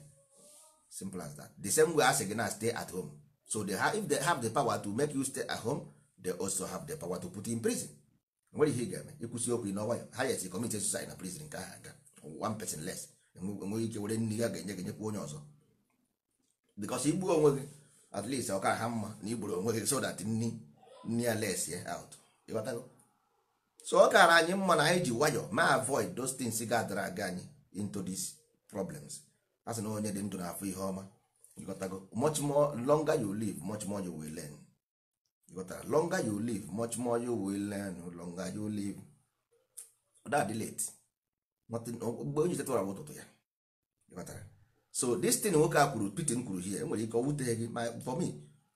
simple as that the same way a sị gị na stay at home so they have, if they have the power to make you stay at home they also have the power to put you in prison nwere ihe ị ga-eme ịkwụsị okwu n'ọnwa ya ha yes commit suicide na prison nke ahụ aga one person less enweghị ike were nne ya ga-enye gị enyekwa onye ọzọ because igbuo onwe gị at least ọ ka ha mma na igburu onwe gị so that nni nni ya less ya out ịghọtago so ọ kara anyị mma na anyị ji nwayọ ma avoid those things ga-adara aga anyị into these problems a sị na onye dị ndụ na-afụ ihe ọma ịghọtago much more longer you live much more you will learn ịghọtara longer you live much more you will learn longer you live that late mgbe onye chetara bụ ụtụtụ ya ịghọtara so this thing nwoke a kwuru Putin kwuru hie enwere ike ọ wutere gị ma for me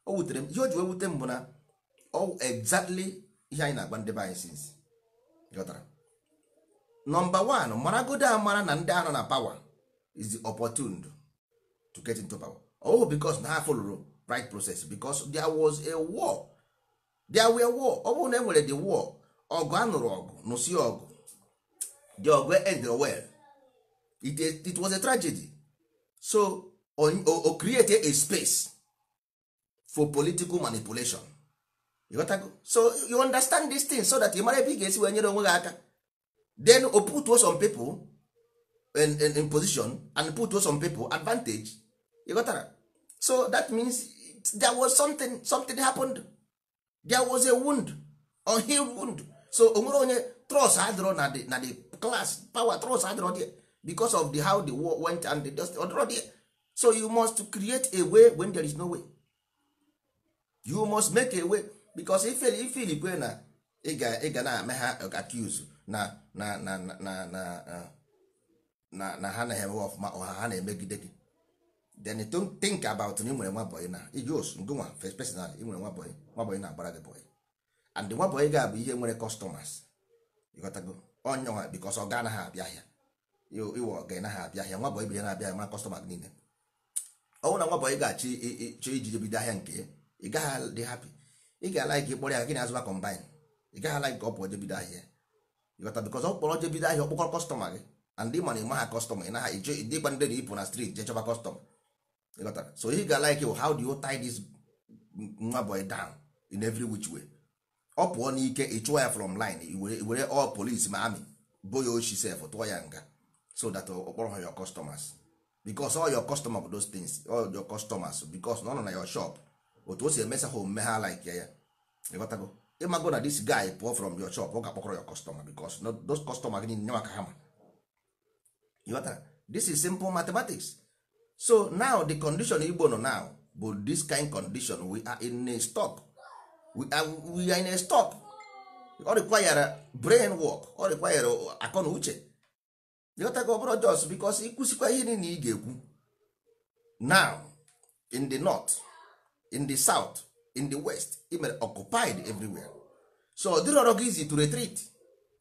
o wutere m ihe o ji wee wute m bụ na ọ exactly ihe anyị na-agba ndị be anyị since ịghọtara nọmba one maragodo amara na ndị anọ na power is opportune to get into power oh because na ha follow right process because there was a war there were war ọ bụrụ na e nwere the war ọgụ anụrụ ọgụ nụsi ọgụ the ọgụ e end well it, it was a tragedy so o create a space for political manipulation you go? so you understand this thing so that you mara ebe ị ga-esi wee nyere onwe gị aka then o put some people in, in, in position and put some people advantage you got that? so that means there was something something happened there was a wound unhealed wound so onwere onye trust adịrọ na the na the class power trust adịrọ there because of the how the war went and the dust adịrọ there so you must create a way when there is no way you must make a way because if if go na ị ga na-eme ha accuse na na na na na na na ha na-eme ọfụma ọha ha na-emegide gị then don't think about na ị nwere nwa bọyị na iji os ngụnwa first personal ị nwere nwa bọyị nwa bọyị na-agbara gị bọyị and nwa bọyị ga-abụ ihe nwere customers ịghọtago onye nwa because ọ ga anaghị abịa ahịa iwe ọga naghị abịa ahịa nwa bọyị bụ na-abịa ahịa ma gị niile ọnwụ na nwa bọyị ga-achọ chọọ iji bido ahịa nke ya ị gaghị dị happy ị ga-ala gị kpọrọ ya gị na azụba combine ị gaghị ala gị ka ọ pụọ jebido ahịa ịghọta bikọz ọ kpọrọ je bido ahịa ọkpọkọ kọstọma gị and ịma na ịma ha kọstọma ị na eje ndị gba ndị ipụ na strit je chọba kọstọma ịghọtara so ihe ga like you how do you tie this nwa boy down in every which way ọ pụọ n'ike ị chụọ ya from line were all police ma amị bo ya ochi sef tụọ ya nga so that ọkpọrọ uh, ha your customers because all your customer bụ those things all your customers because na ọ nọ na your shop otu o si emesa ha omume ha like ya ya ịghọtago ịmago na this guy pụọ from your shop ọ ga-akpọkọrọ your customer because those customer gị nye maka hama ịghọtara this is simple mathematics so now the condition igbo nọ now bụ this kind condition we are in a stop we are, we are in a stop ọ require brain work ọ require akọ na uche ịghọtago ọbụrụ jos because ịkwụsịkwa ihe niile ị ga-ekwu now in the north in the south in the west i occupied everywhere so ọ dịrọrọ gị izi to retreat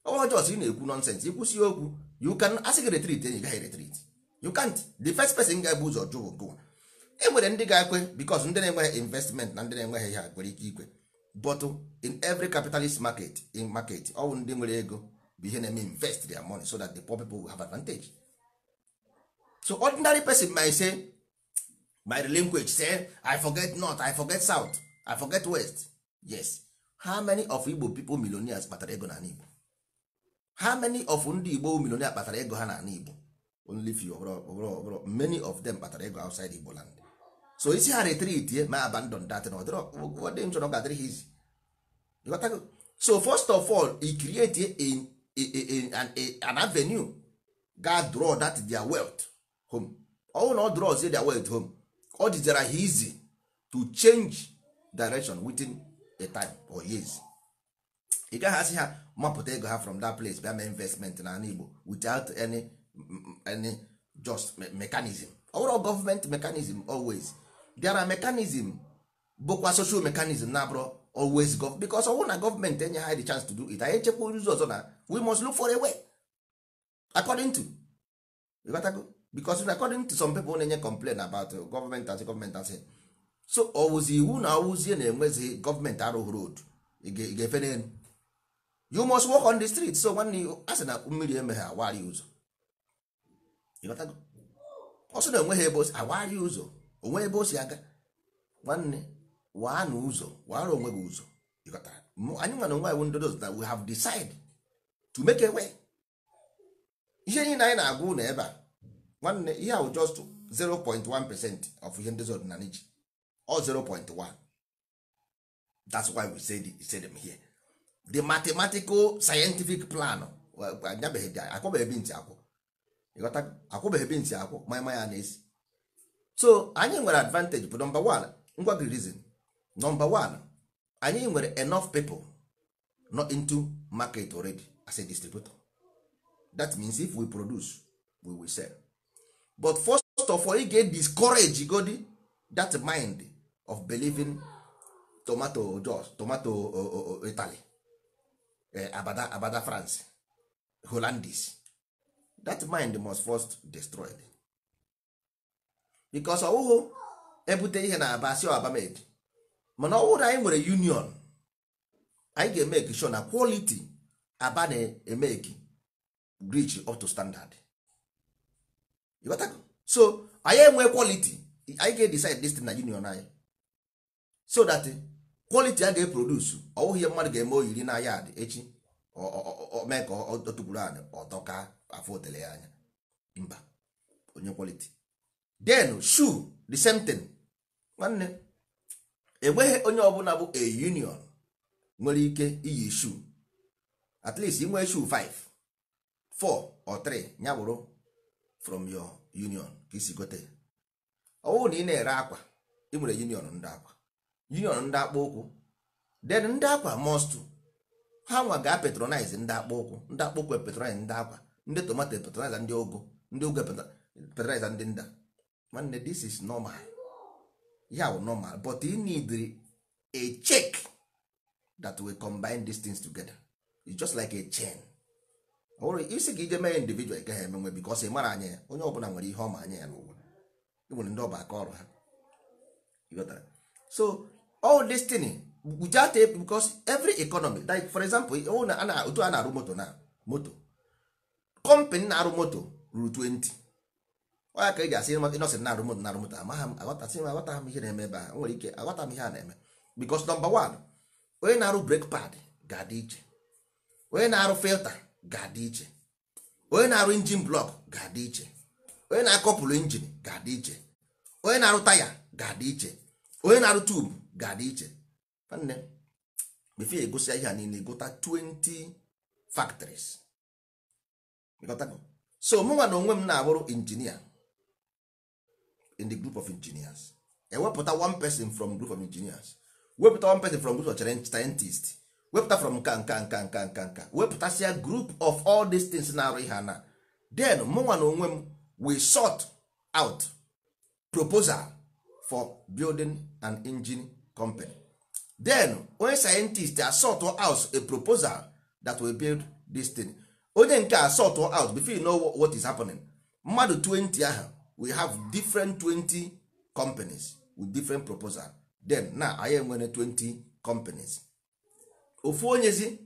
ọwa jos ị na-ekwu nonsense ikwụsị okwu you can asị gị retreat enyi gaghị retreat you can't the first person ga-ebu ụzọ jụ gụwa e nwere ndị ga-ekwe because ndị na-enweghị investment na ndị na-enweghị ihe nwere ike ikwe but oh, in every capitalist market in market ọwụ ndị nwere ego bụ ihe na-eme invest their money so that the poor people will have advantage so ordinary person may say my language say i forget north i forget south I forget west yes how many of igbo people millionaires kpatara ego n'ala igbo how many of ndị igbo millionaires kpatara ego ha n'ala igbo only few ọbụrụ many of them kpatara ego outside igbo land so isi ha retreat eh, ma abandon that na ọ dị nchọrọ gadịrị ha izi so first of all e create eh, a, a, an avenue ga draw that their wealth home ọnwụ na ọ draw their wealth home ọ dịzara ha easy to change direction within a time or years ị gaghị asị ha mapụta ego ha from that place bịa mee investment na ala Igbo without any any just mechanism ọ bụrụ government mechanism always bịara mechanism bụkwa social mechanism na abụrụ always go because ọ bụrụ na government enye ha the chance to do it anyị echekwa ụzọ ọzọ na we must look for a way according to because according to some people na-enye complain about as asị as asị so ọwụzi iwu na ọwụzie na-enwezighị gọọmenti arụghị road ị ga-efe n'elu you must walk on the street so nwanne a sị na mmiri emeghe awarị ụzọ ọsọ na enweghị ebe osi awarị ụzọ onwe ebe o si aga nwanne waa na ụzọ waara onwe gị ụzọ anyị nwa na onwe anyị ndodo that we have decided to make a way ihe niile anyị na-agwa ụlọ ebe a nwanne ihe ahụ just 0.1 percent of ihe ndị zọdịnala ji 0.1 that's why we say we said them here the mathematical scientific plan akwụbeghị ntị akwụ ịghọta akwụbeghị ntị akwụ mama ya so anyị nwere advantage bụ number one ngwa gị reason number one anyị nwere enough people not into market already as a distributor that means if we produce we will sell but first of all ị ga discourage godi that mind of believing tomato jos tomato uh, uh, uh, italy eh, abada abada france hollandis that mind must first destroyed because ọwụhụ ebute ihe na aba si abamed mana ọ bụrụ anyị nwere union anyị ga-emeki sure na quality aba na-emeki reach up to standard so anyị enwe quality anyị ga-edecide this thing na union anyị so that eh, quality a ga-eproduce ọ bụghị ihe mmadụ ga-eme oyiri na ya dị echi mee ka ọ tụgburu anyị ọtọ ka afọ otele ya anya mba onye quality then shoe the same thing nwanne enweghị onye ọbụla bụ a union nwere ike iyi shoe at least inwee shu 5 4 or 3 ya bụrụ from your union ka isi gote ọ bụrụ na ị na-ere akwa ị nwere union ndị akwa union ndị akpụ ụkwụ then ndị akwa most ha nwa ga patronize ndị akpụ ụkwụ ndị akpụ ụkwụ patronize ndị akwa ndị tomato patronize ndị ogo ndị ogo patronize ndị nda nwanne this is normal ya yeah, normal but you need a check that we combine these things together it's just like a chain isi ka ije mee individual gaghị emenwe because ị mara anya ya onye ọbụla nwere ihe ọma anya ya n'ụwa nwere ndị ọba aka ọrụ ha so all this thing without it because every economy like for example oh, na otu a na-arụ moto na moto company na-arụ moto ruru 20 ọya ka e ji asị ịnọsịn na-arụ moto na-arụ moto amaghị m aghọtasị m aghọtaghị m ihe na-eme ebe a nwere ike aghọta m ihe a na-eme because number one onye na-arụ brake pad ga-adị iche onye na-arụ filta ga-adị iche onye na-arụ injin blọk ga-adị iche onye na-akọpụrụ injin ga-adị iche onye na-arụ taya ga-adị iche onye na-arụ tubu ga-adị iche nne before egosi ihe a niile gota 20 factories so mụnwa na onwe m na-abụrụ injinia in the group of engineers ewepụta one person from group of engineers wepụta one person from group of scientist wepụta from nka nka nka nka nka nka a group of all these things na-arụ ihe na. then mụnwa na onwe m we sort out proposal for building an engine company then onye scientist asort out a proposal that will build this thing onye nke asort out before you know what is happening mmadụ 20 ahụ we have different 20 companies with different proposal then na anyị enwere 20 companies ofu onyezi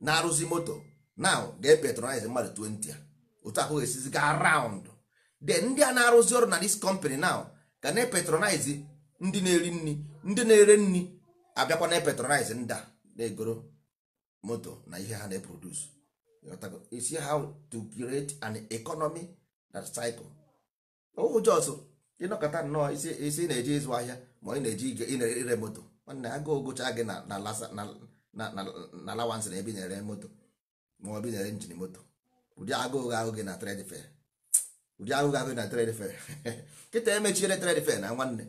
na-arụzi moto now ga-epetronize mmadụ 20 otu ahụ esizi ga round then ndị a na-arụzi ọrụ na this company now ga na-epetronize ndị na-eri nri ndị na-ere nri abịakwa na epetronize ndị a na-egoro moto na ihe ha na-eproduce isi how to create an economy that cycle ohu jos ịnọkọta nnọọ isi na-eje ịzụ ahịa ma ị na-eji ire moto nwanne aga ogocha gị na alawansị na ebe na-ere moto ma ọ bụ na-ere njin moto ụdị agụụ ahụ gị na trade fair ụdị agụụ ahụ gị na trade fair kịta emechiere trade fair na nwanne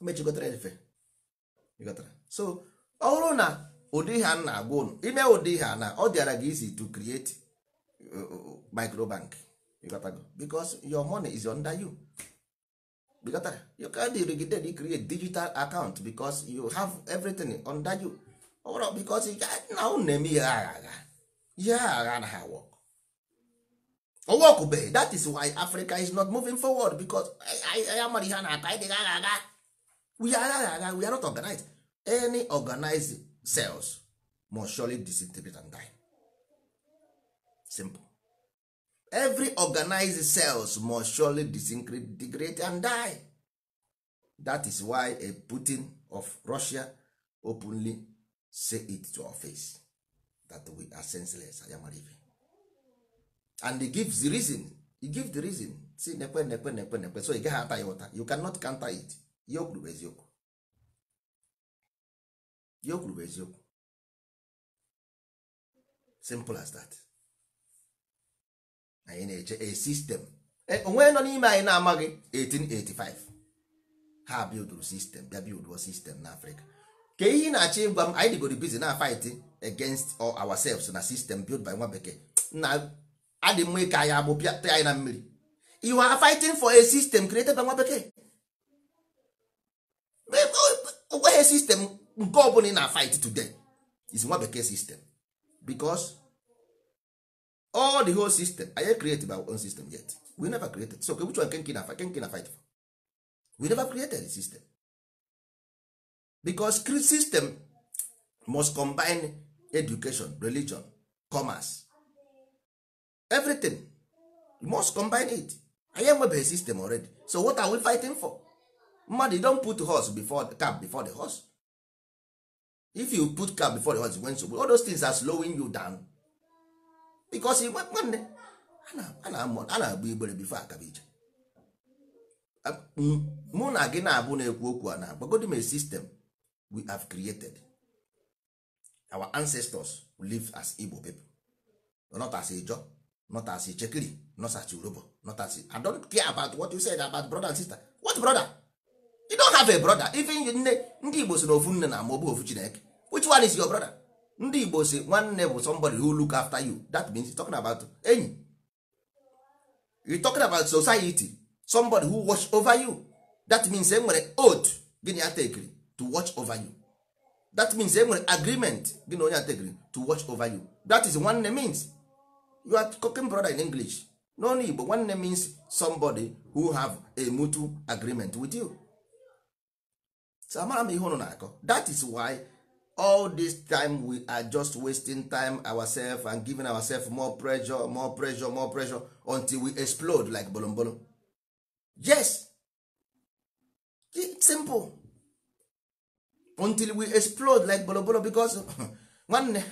mechigotara e efe so ọ bụrụ na ụdị ha na-agwa ụnụ ime ụdị ha na ọ dịara gị isi to create uh, uh, microbank because your money is under you you can't irrigate create digital account because you have everything under you ọ bụrụ because na ụnụ na-eme ihe agha agha ihe agha na ha work ọwọkụbeghị that is why Africa is not moving forward because anyị amara ihe a na-ata anyị agha agha we are, we are not organized any organized cells must surely disintegrate and die simple every organized cells must surely disintegrate and die that is why a Putin of Russia openly say it to our face that we are senseless ayamarive and he gives the reason he gives the reason say nekwe nekwe nekwe nekwe so ị get ata ya you cannot counter it ihe o bụ eziokwu ihe bụ eziokwu simple as that anyị na-eche a system e, onwe nọ n'ime anyị na-amaghị 1885 ha bildụrụ sistem bịa bilduo sistem n'afrịka ka ihe na-achọ ịgwa m anyị dịgoro bizi na fight against all ourselves na system built by nwa bekee na adị mma ịka anyị agbụ pịata anyị na mmiri you are fighting for a system created by nwa bekee onweghị sistem nke ọbụla ị na fight today is nwa bekee sistem because all the whole system anyị created our own system yet we never created so which one kenke na fight na fight for we never created the system because system must combine education religion commerce everything must combine it anyị enwebeghị system already so what are we fighting for mmadụ don put horse before cap before the horse if you put cap before the horse when nsogbu all those things are slowing you down because igwe nwanne a na-agba igbere bifo akabiche um, mụ na gị na-abụ na-ekwu okwu a na gbagodi m system we have created our ancestors live as Igbo people not as Ijaw not as Ichekiri not as Yoruba not as I don't care about what you said about brother and sister what brother you don't have a brother even nne ndị igbo si na ofu nne na ama ofu chineke which one is your brother ndị igbo si nwanne bụ somebody who look after you that means you talking about enyi You talking about society somebody who watch over you that means e nwere oath gị na ya to watch over you that means e nwere agreement gị onye atekiri to watch over you that is nwanne means you are talking brother in english n'ọnụ igbo nwanne means somebody who have a mutual agreement with you so amara m ihe ụnụ na-akọ that is why all this time we are just wasting time ourselves and giving ourselves more pressure more pressure more pressure until we explode like bolombolo. yes it's simple until we explode like bolombolo because nwanne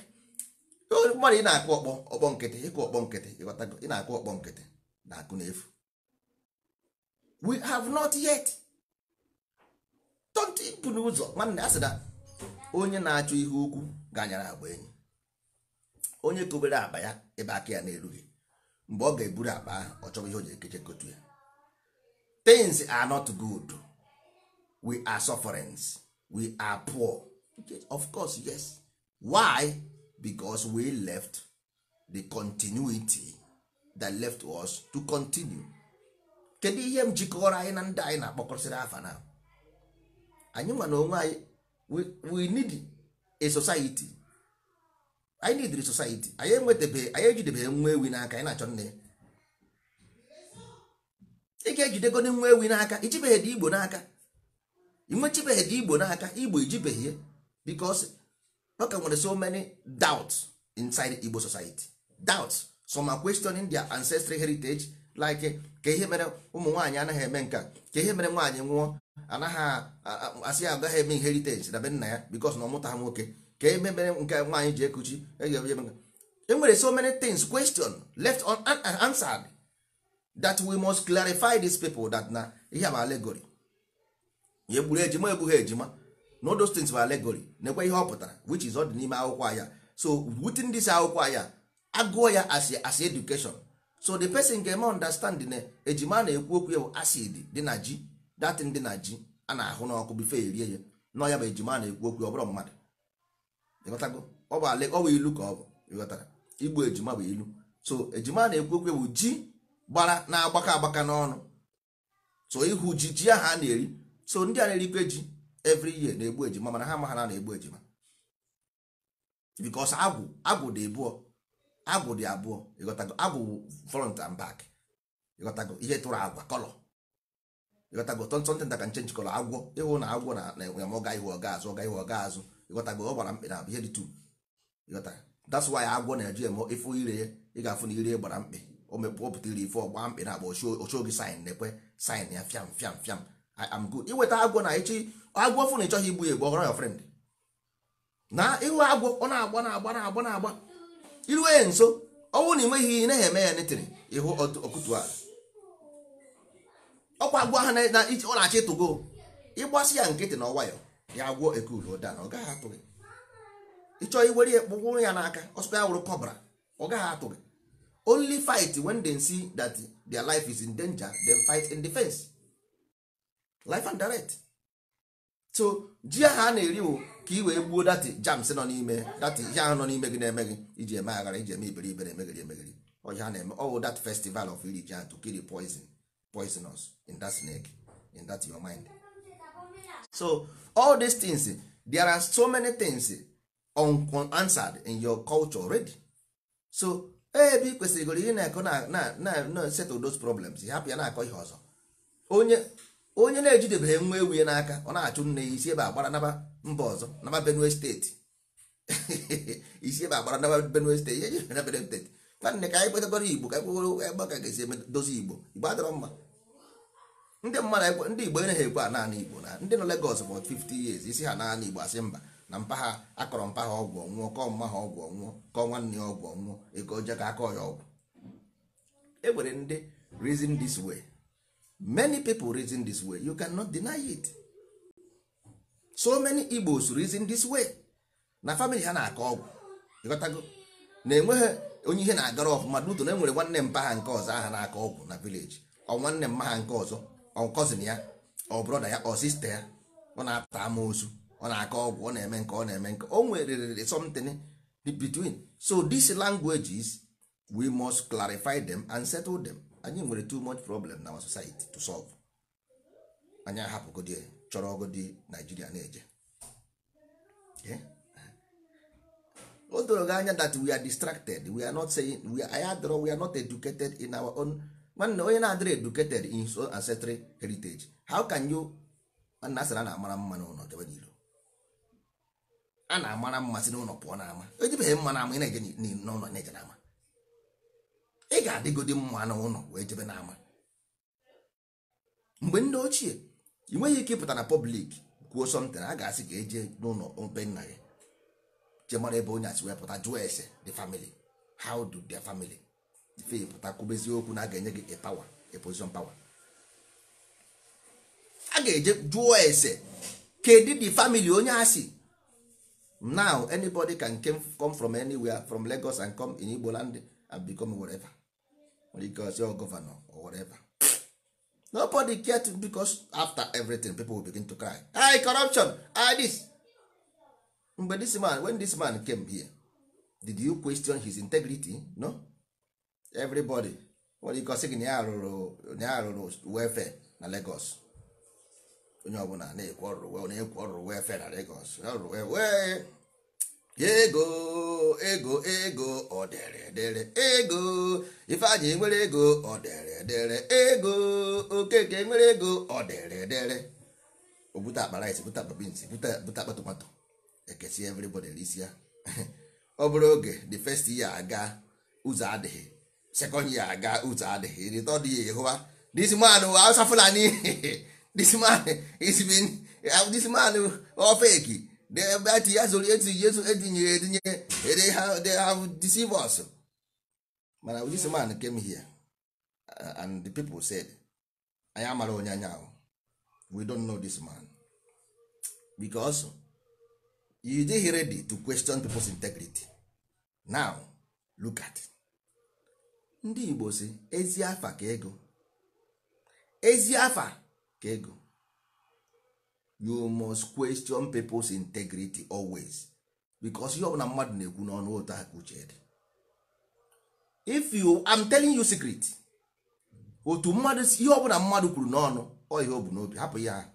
mmadụ ị na-akụ ọkpọ ọkpọ nkịtị ịkụ ọkpọ nkịtị ịghọtago ị na-akụ ọkpọ nkịtị na akụ n'efu we have not yet tọtipụ n'ụzọ nwanne a sị na onye na-achọ ihe ukwu ganyara agba enyi onye kobere akpa ya ebe aka ya na-erughị mgbe ọ ga-eburu akpa ahụ ọ chọrọ ihe o ji ekeche kotu ya tins are not good we are sufferings we are poor of course yes why because we left the continuity that left us to continue kedu ihe m jikọrọ anyị na ndị anyị na-akpọkọsịrị afa na anyị nwa na onwe anyị we need a society anyị need a society anyị enwetabeghị anyị ejidebeghị nwa ewi n'aka anyị na-achọ nne ya ị ga-ejidego nwa ewi n'aka ijibeghị dị igbo n'aka inwechibeghị dị igbo n'aka igbo ijibeghị ya because ọka nwere so many doubts inside igbo society doubts some are questioning their ancestral heritage like eh, ka ihe mere ụmụ nwaanyị anaghị eme nka ka ihe mere nwaanyị nwụọ anaghị asị ya agaghị eme inheritance na be nna ya because na ọ ha nwoke ka ihe mere nke nwaanyị ji ekuchi e, e nwere so many things question left unanswered that we must clarify these people that na ihe bụ alegory ya egburu ejima egbughị ejima no those things bụ allegory na-ekwe ihe ọ pụtara which is ọ dị n'ime akwụkwọ ahịa. so within this akwụkwọ ahịa, agụọ ya as education so the person ga-eme understand na eh, ejima na-ekwu okwu ya bụ acid dị na ji datin dị na ji a na-ahụ n'ọkụ bife erie ya na ya bụ ejima na-ekwu okwu ọ mmadụ ọ bụ ala ọ bụ ilu ka ọ bụ ịghọtara igbu ejima bụ ilu so ejima na-ekwu okwu ya bụ ji gbara na-agbakọ agbaka n'ọnụ so ihu ji ji ahụ a na-eri so ndị a na-erikwe ji every year na-egbu ejima mana ha ma ha na-egbu ejima because agwụ agwụ dị bụọ agwụ dị abụọ ịghọtago agwụ front and back ihe tụrụ agwa kọlọ ịghọtago tọntọntị nta ka nchenji agwọ ịhụ na agwọ na enwe ọga ihu ọga azụ ọga azụ ịghọtago ọ gbara mkpị na ihe dị tu ịghọtara that's why agwọ na-eji eme ire ị ga-afụ na ire gbara mkpị o iri ife ọgba mkpị na agba ochie oge na-ekwe sin ya fiam fiam fiam iweta agwọ na echi agwọ fụ na ịchọghị igbu egbu ya na ịhụ agwọ ọ na-agba na-agba na-agba na-agba iruo ya nso ọnwụ na enweghị ihe na eme ya netiri ịhụ ọkụtu ala ọkwa agwọ ha ọ na-achọ ịtụgo ịgbasị ya nkịtị na ọwayọ ya agwọ ekulu ụda na ọ gaghị atụ gị ịchọọ iwere ya kpụgbụrụ ya n'aka ọsụkwa ya wụrụ kọbra ọ gaghị atụ gị only fight when they see that their life is in danger then fight in defense life and direct so ji ahụ a na-eri o ka i wee gbuo dati jams nọ n'ime dati ihe ahụ nọ n'ime gị na-eme gị iji eme aghara iji eme iberi na-emegiri emegiri ha na-eme ọwụ dat festival of iri ji to kill poison poisonous in that snake in that your mind so all these things there are so many things unanswered in your culture already so e, ebe ị kwesịrịgoro ihe na-akọ na settle those problems hapụ ya na-akọ ihe ọzọ onye onye na-ejidebeghị nwa ewu ya n'aka ọ na-achụ nne ya isi ebe agbara naba mba ọzọ naba benue steeti isi ebe agbara naba benue steeti ihe jere benue steeti nwanne ka anyị kwetakọrọ igbo ka anyị ebe ka ga-esi edozi igbo igbo adịrọ mma ndị mmadụ ndị igbo enaghị ekwe a naanị igbo na ndị nọ legos bụ 50 years isi ha naanị igbo asị mba na mpa ha akọrọ mpa ha ọgwụ ọnwụọ kọọ mma ha ọgwụ ọnwụọ kọọ nwanne ya ọgwụ ọnwụọ ego oje ka akọ ya ọgwụ e nwere ndị reason this way many people reason this way you cannot deny it so many igbos reason this way na family ha na-akọ ọgwụ na-enweghị onye ihe na-agara ọfụma duto na enwere nwanne mpa ha nke ọzọ aha na-akọ ọgwụ na village ọ nwanne mma nke ọzọ ọ cousin ya ọ brọda ya ọ sista ya ọ na-apụta amoosu ọ na-akọ ọgwụ ọ na-eme nke ọ na-eme nke o nwere something between so these languages we must clarify them and settle them. anyị nwere too much problem na our society to solve anyị ahapụgodi chọrọ ọgụdị naijiria na-eje o doro gị anya that we are distracted we are not saying we are, we are not educated in our own nwanne onye na-adịrị educated in his own ancestral heritage how can you nna asịra na-amara mma n'ụlọ jebe n'ilo a na-amara mmasị n'ụlọ pụọ n'ama ejibeghị mma n'ama ị na-eje n'ụlọ na-eje n'ama ị ga adịgodị mma na ụlọ wee jebe ama mgbe ndị ochie ị nweghị ike ịpụta na pọblik kwuo something a ga-asị ka eje n'ụlọ obe nna gị je mara ebe onye asị wee pụta jụọ ese the family how do their family ife pụta kwubezi okwu na a ga-enye gị a power a position power a ga-eje jụọ ese kedu the family onye asị now anybody can come from anywhere from Lagos and come in Igbo land and become whatever because your governor or whatever nobody care to because after everything people will begin to cry I corruption I this mgbe this man when this man came here did you question his integrity no everybody nwere ike ọsị gị na ya rụrụ wefe na Lagos onye ọbụla na-ekwu ọrụ na-ekwu ọrụ wefe na Lagos ọrụ wee ego ego ego ọdịrịdịrị ego ifeanyị nwere ego ọdịrịdịrị ego okeke nwere ego ọdịrịdịrị o bute akpa rice bute akpa beans bute akpa tomato ekesi everybody risi ya ọ bụrụ oge the first year aga ụzọ adịghị second year aga ụzọ adịghị the third year hụwa this man Hausa Fulani this man is been this man ofeki ebe ati azụrụ etu etinye etinyere etinye ere ha they have deceived us mana this man came here uh, and the people said anyị amara onye anya we don't know this man because you dịghị ready to question people's integrity now look at it. ndị Igbo si ezi afa ka ego ezi afa ka ego you must question people's integrity always because ihe ọbụla mmadụ na-ekwu n'ọnụ ụtọ ha ka uche if you I'm telling you secret otu mmadụ ihe ọbụla mmadụ kwuru n'ọnụ ọ ihe o n'obi hapụ ya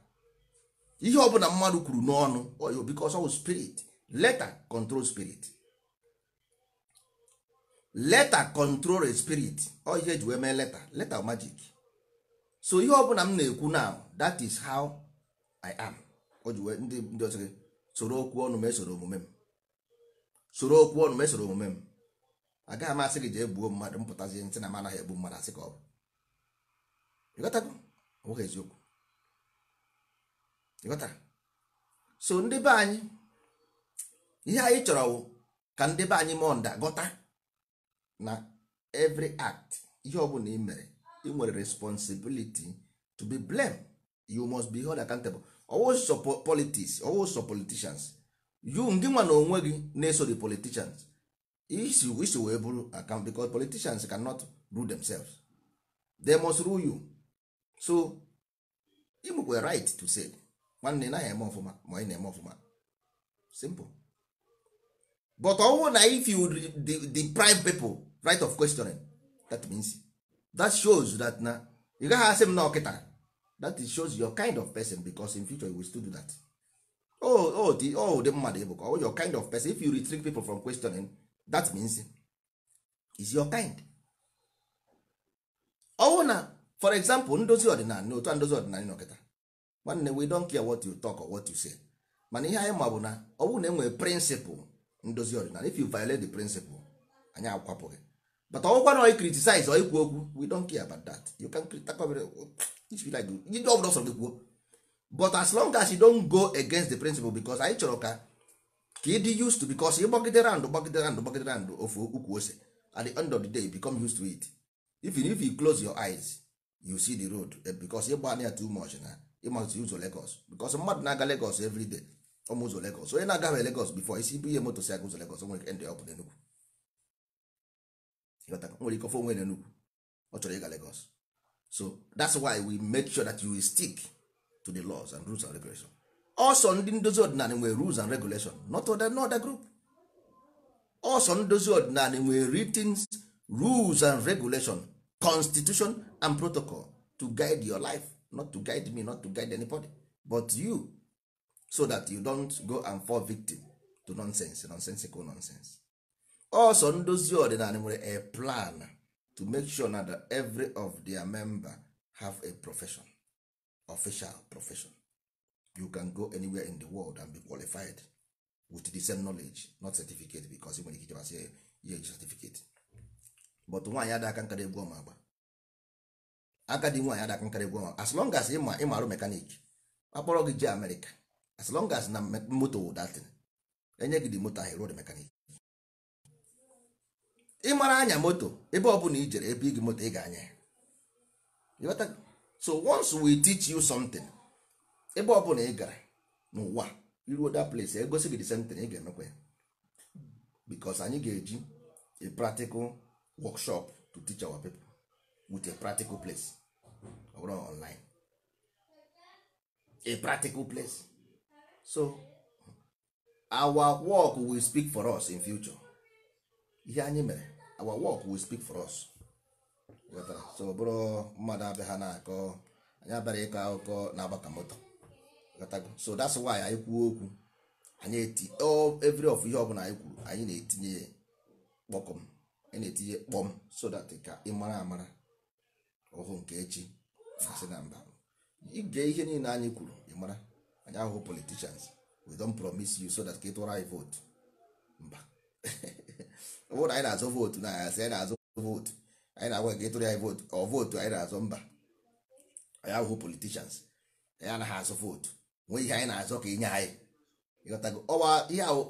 ihe ọbụla mmadụ kwuru n'ọnụ ọ obi because ọ spirit letter control spirit letter control spirit ọ oh, ihe eji wee mee letter letter magic so ihe ọbụla m na-ekwu now that is how i am o ndị ndị ọzọ gị soro okwu ọnụ ma esoro omume m soro okwu ọnụ ma esoro omume m agaghị m asị gị jee gbuo mmadụ mpụtazie ntị na m anaghị egbu mmadụ asị ka ọ bụ ịghọtago ọbụghị eziokwu ịghọtara so ndị be anyị ihe anyị chọrọ ka ndị be anyị mụọ gọta na every act ihe ọ bụla ị mere ị nwere responsibility to be blamed you must be held accountable always support politics always support politicians you ngị nwa na onwe gị na-eso the politicians isi isi wee bụrụ account because politicians cannot rule themselves they must rule you so you were right to say nwanne naghị eme ọfụma ma ị na-eme ọfụma simple but ọnwụ na if you deprive people right of questioning that means that shows that na ị gaghị asị m na ọkịta that is shows your kind of person because in future you will still do that oh oh the oh the mmadụ bụ oh your kind of person if you restrict people from questioning that means is your kind ọwụ oh, na for example ndozi ọdịnala otu a ndozi ọdịnala nọkịta nwanne we don't care what you talk or what you say mana ihe anyị ma bụ na ọwụ na enwere principle ndozi ọdịnala if you violate the principle anyị akwapụghị but ọgwụkwa na oyi criticize oyi kwuo okwu we don't care about that you can ọbụla ọsọ gị kwuo but as long as you don't go against the principle because anyị chọrọ ka ka ịdị used to because ịgbagide rand gbagide rand gbagide rand ofu ukwu ose at the end of the day you become used to it even if you close your eyes you see the road eh, because ịgba na ya too much na ịmazi ụzọ Lagos because mmadụ na-aga Lagos every day ọmụ ụzọ Lagos onye na-agaghị Lagos before isi bụ ihe moto si aga ụzọ Lagos nwere ndị ọ bụ n'Enugwu nwere ike ofe onwe na Enugu ọ chọrọ ịga Lagos so that's why we make sure that you stick to the laws and rules and regulations. ọsọ ndị ndozi ọdịnala nwere rules and regulation not other, not other group ọsọ ndozi ọdịnala nwere written rules and regulation constitution and protocol to guide your life not to guide me not to guide anybody but you so that you don't go and fall victim to nonsense nonsensical nonsense ọsọ ndozi ọdịnala nwere a plan to make sure na that every of their member have a profession official profession you can go anywhere in the world and be qualified with the same knowledge not certificate because nwere ike ichebasị ya eji certificate but nwaanyị ada aka nkara egwu ọma agba agadi nwaanyị ada aka nkara egwu ọma as long as ịma ịmarụ mekanik akpọrọ gị jee amerịka as long as na moto datin enye gị dị moto ahụ ruo mekanik ị mara anya moto ebe ọbụla i jere ebe igi moto ị ga-anya ya so once we teach you something ebe ọbụla ị gara n'ụwa iruo that place egosi gị the same thing ị ga-emekwa ya because anyị ga-eji a practical workshop to teach our people with a practical place ọ bụrụ online a practical place so our work will speak for us in future ihe anyị mere our work will speak for us so ọ bụrụ mmadụ abịa na-akọ anyị abịara ịkọ akụkọ na agbaka moto so that's why anyị kwuo okwu anyị eti every of ihe ọbụla anyị kwuru anyị na-etinye kpọkọm anyị na-etinye kpọm so that ka ị mara amara ọhụụ nke echi na-asị na mba ige ihe niile anyị kwuru ị mara anyị ahụhụ politicians we don promise you so that ka ị tụra anyị vote mba ọ bụrụ na anyị na-azụ vootu na asị anyị na-azụ vootu anyị na-agwa ka ịtụrụ anyị vootu ọ vootu anyị na-azụ mba anyị ahụhụ politishans anyị anaghị azụ vootu nwee ihe anyị na-azụ ka inye anyị ọwa ihe ahụ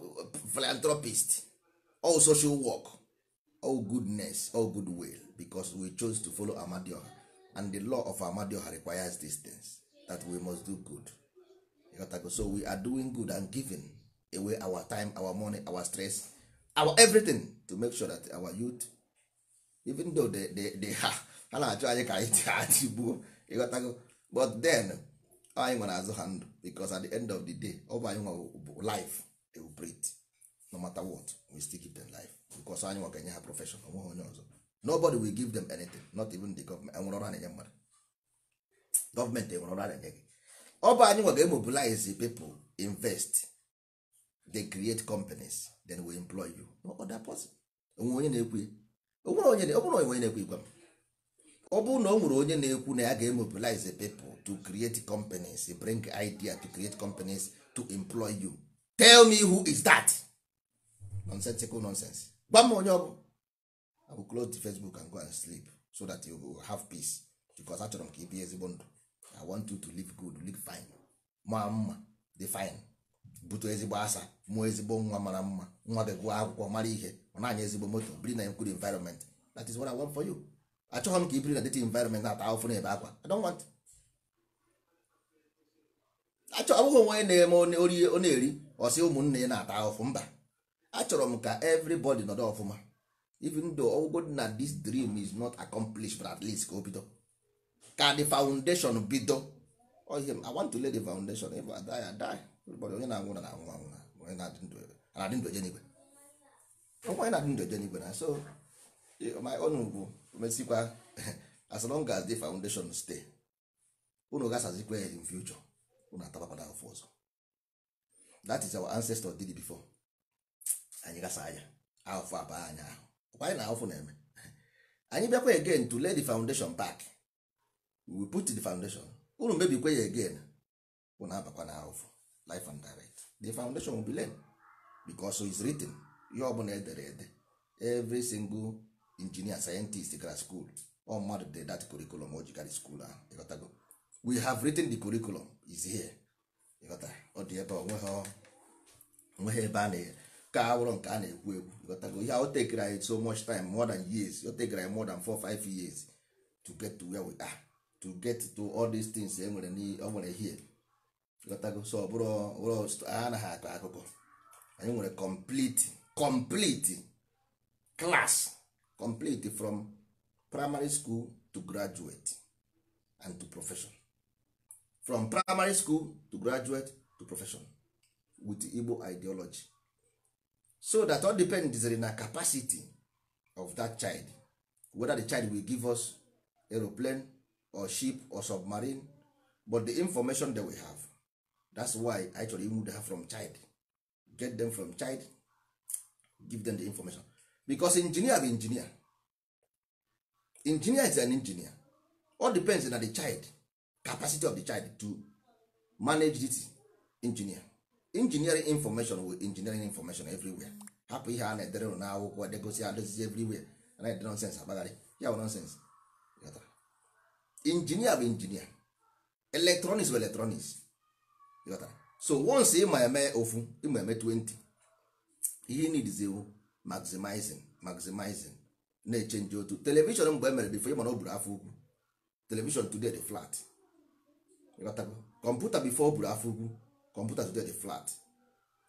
philanthropist all social work all goodness all good will because we chose to folo Amadioha and the law of Amadioha requires these things that we must do good ịghọtago so we are doing good and giving away our time our money our stress our everything to make sure that our youth even though they, they, they ha ha na-achọ anyị ka anyị achị gbuo ịghọtago but then anyị nwere azụ ha ndụ because at the end of the day ọ bụ anyị nwa bụ life they will no matter what we still give them life because anyị nwa ga-enye ha profession onweghị onye ọzọ nobody will give them anything not even the government enwere ọrụ a na-enye mmadụ gọọmenti enwere ọrụ a na-enye gị ọ bụ anyị nwa ga-emobilize people invest they create companies then we employ you no other person onwe onye na-ekwu ya onwere onye onye na-ekwu igwe m ọ bụrụ na o nwere onye na-ekwu na ya ga-emobilize people to create companies bring idea to create companies to employ you tell me who is that nonsensical nonsense gwa m onye ọbụ I go close the Facebook and go and sleep so that you will have peace because achọrọ m ka ị bie ezigbo ndụ I want you to live good live fine ma mma dị fine butu ezigbo asa mụọ ezigbo nwa mara mma nwa begụọ akwụkwọ mara ihe ọ na ezigbo moto biri na nkwuru environment that is what I want for you achọghị m ka i biri na dịtị environment na-ata ahụfụ na ebe akwa I don't want achọ ọ onwe onye na-eme orie na-eri ọsị ụmụnne ya na-ata ahụfụ mba achọrọ m ka everybody nọdụ ọfụma even though ọgwụgwọ na this dream is not accomplished but at least ka o bido ka the foundation bido oh, I want to lay the foundation if I die I die onye na-anwụ na anwụ anwụ onye na-adị ndụ eje n'igwe onye na-adị ndụ eje n'igwe na so ọnụ bụ mesikwa as long as the foundation stay unu gasazikwa ya in future unu atabapada afọ ọzọ that is our ancestor did before anyị gasa anya afọ abaa anya ahụ ọkwa anyị na-afụ na-eme anyị bịakwa again to lay the foundation back we put the foundation unu mebikwa ya again unu abakwa na life and direct the foundation will be laid because is written ihe ọbụla edere ede every single engineer scientist gara school all mmadụ de that curriculum o jigara school ahụ we have written the curriculum is here ịghọta ọ dị ebe onweghị ebe a na ka awụrụ nke a na-ekwu ekwu ịghọtago ihe o tekere anyị so much time more than years o tekere anyị more than 4 5 years to get to where we are to get to all these things e nwere o nwere here ghọtago so ọ bụrụ anaghị ah, akọ ah, akụkọ ah, anyị nwere complete complete class complete from primary school to graduate and to profession from primary school to graduate to profession with Igbo ideology so that all depends on the capacity of that child whether the child will give us aeroplane or ship or submarine but the information that we have that's why anyị chọrọ move ha from child get them from child give them the information because engineer bụ engineer engineer is an engineer all depends na the child capacity of the child to manage this engineer engineering information with engineering information everywhere hapụ ihe a na-edere na akwụkwọ edegosi adozizi everywhere na-edere sense agbagharị ya bụ nonsens injinia bụ injinia electronics bụ electronics so once ị ma eme ofu ịma eme 20 ihe needs ewu maximizing maximizing na-echenji otu telivishọn mgbe e mere bifo ịmana o afọ ugwu telivishọn today dị flat kọmputa bifo o buru afọ ugwu kọmputa today dị flat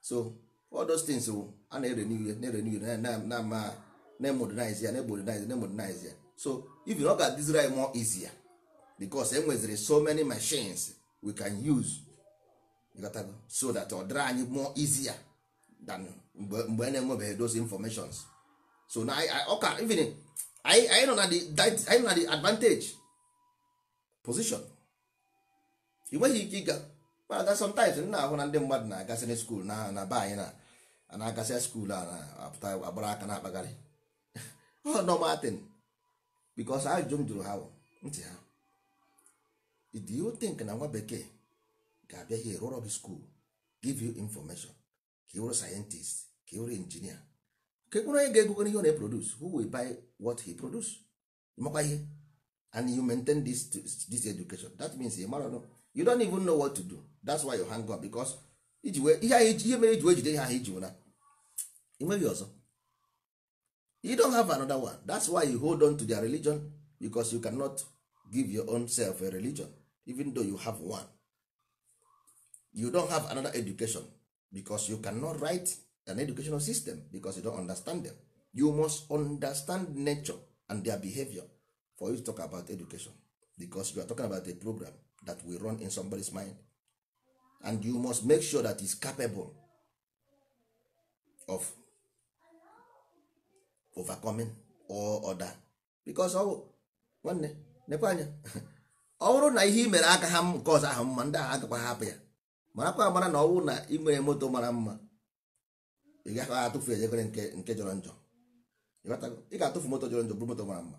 so all those things wụ a na-ere n'ihe na-ere n'ihe na-ama na-emodinize ya na-emodinize na-emodinize ya so even ọ ga-adịziri anyị more easier because e nweziri so many machines we can use ịghọtago so that ọ dịrị anyị more easier than mgbe a na-enwebeghị those informations so na ọka even anyị nọ na the advantage position ị nweghị ike ịga mana sometimes m na-ahụ na ndị mmadụ na-agasị na skuul na na be anyị na na-agasị skuul a na-apụta agbara aka na-akpagharị ọ nọmatin bikos ajụjụ m jụrụ ha ntị ha do you think na nwa bekee ga-abịa here run up school give you information ka ịwụrụ scientist ka ịwụrụ injinia ka ekwuru onye ga-egogo ihe ọ na-eproduce who will buy what he produce makwa ihe and you maintain this, this education that means ị mara you don't even know what to do that's why you hang up because iji ihe mere iji wee jide ihe ahụ iji wụna nweghị ọzọ you don't have another one that's why you hold on to their religion because you cannot give your own self a religion even though you have one you don't have another education because you cannot write an educational system because you don't understand them you must understand nature and their behavior for you to talk about education because you are talking about a program that will run in somebody's mind and you must make sure that is capable of overcoming all other because nwanne nekwe anya ọ bụrụ na ihe mere aka ha nke ọzọ ahụ mma ndị ahụ agakwa hapụ ya marakwa amara na ọnwụ na ị nwere moto mara mma ị gaghị atụfu ejegere nke jọrọ njọ ị ga-atụfu moto jọrọ njọ bụrụ moto mara mma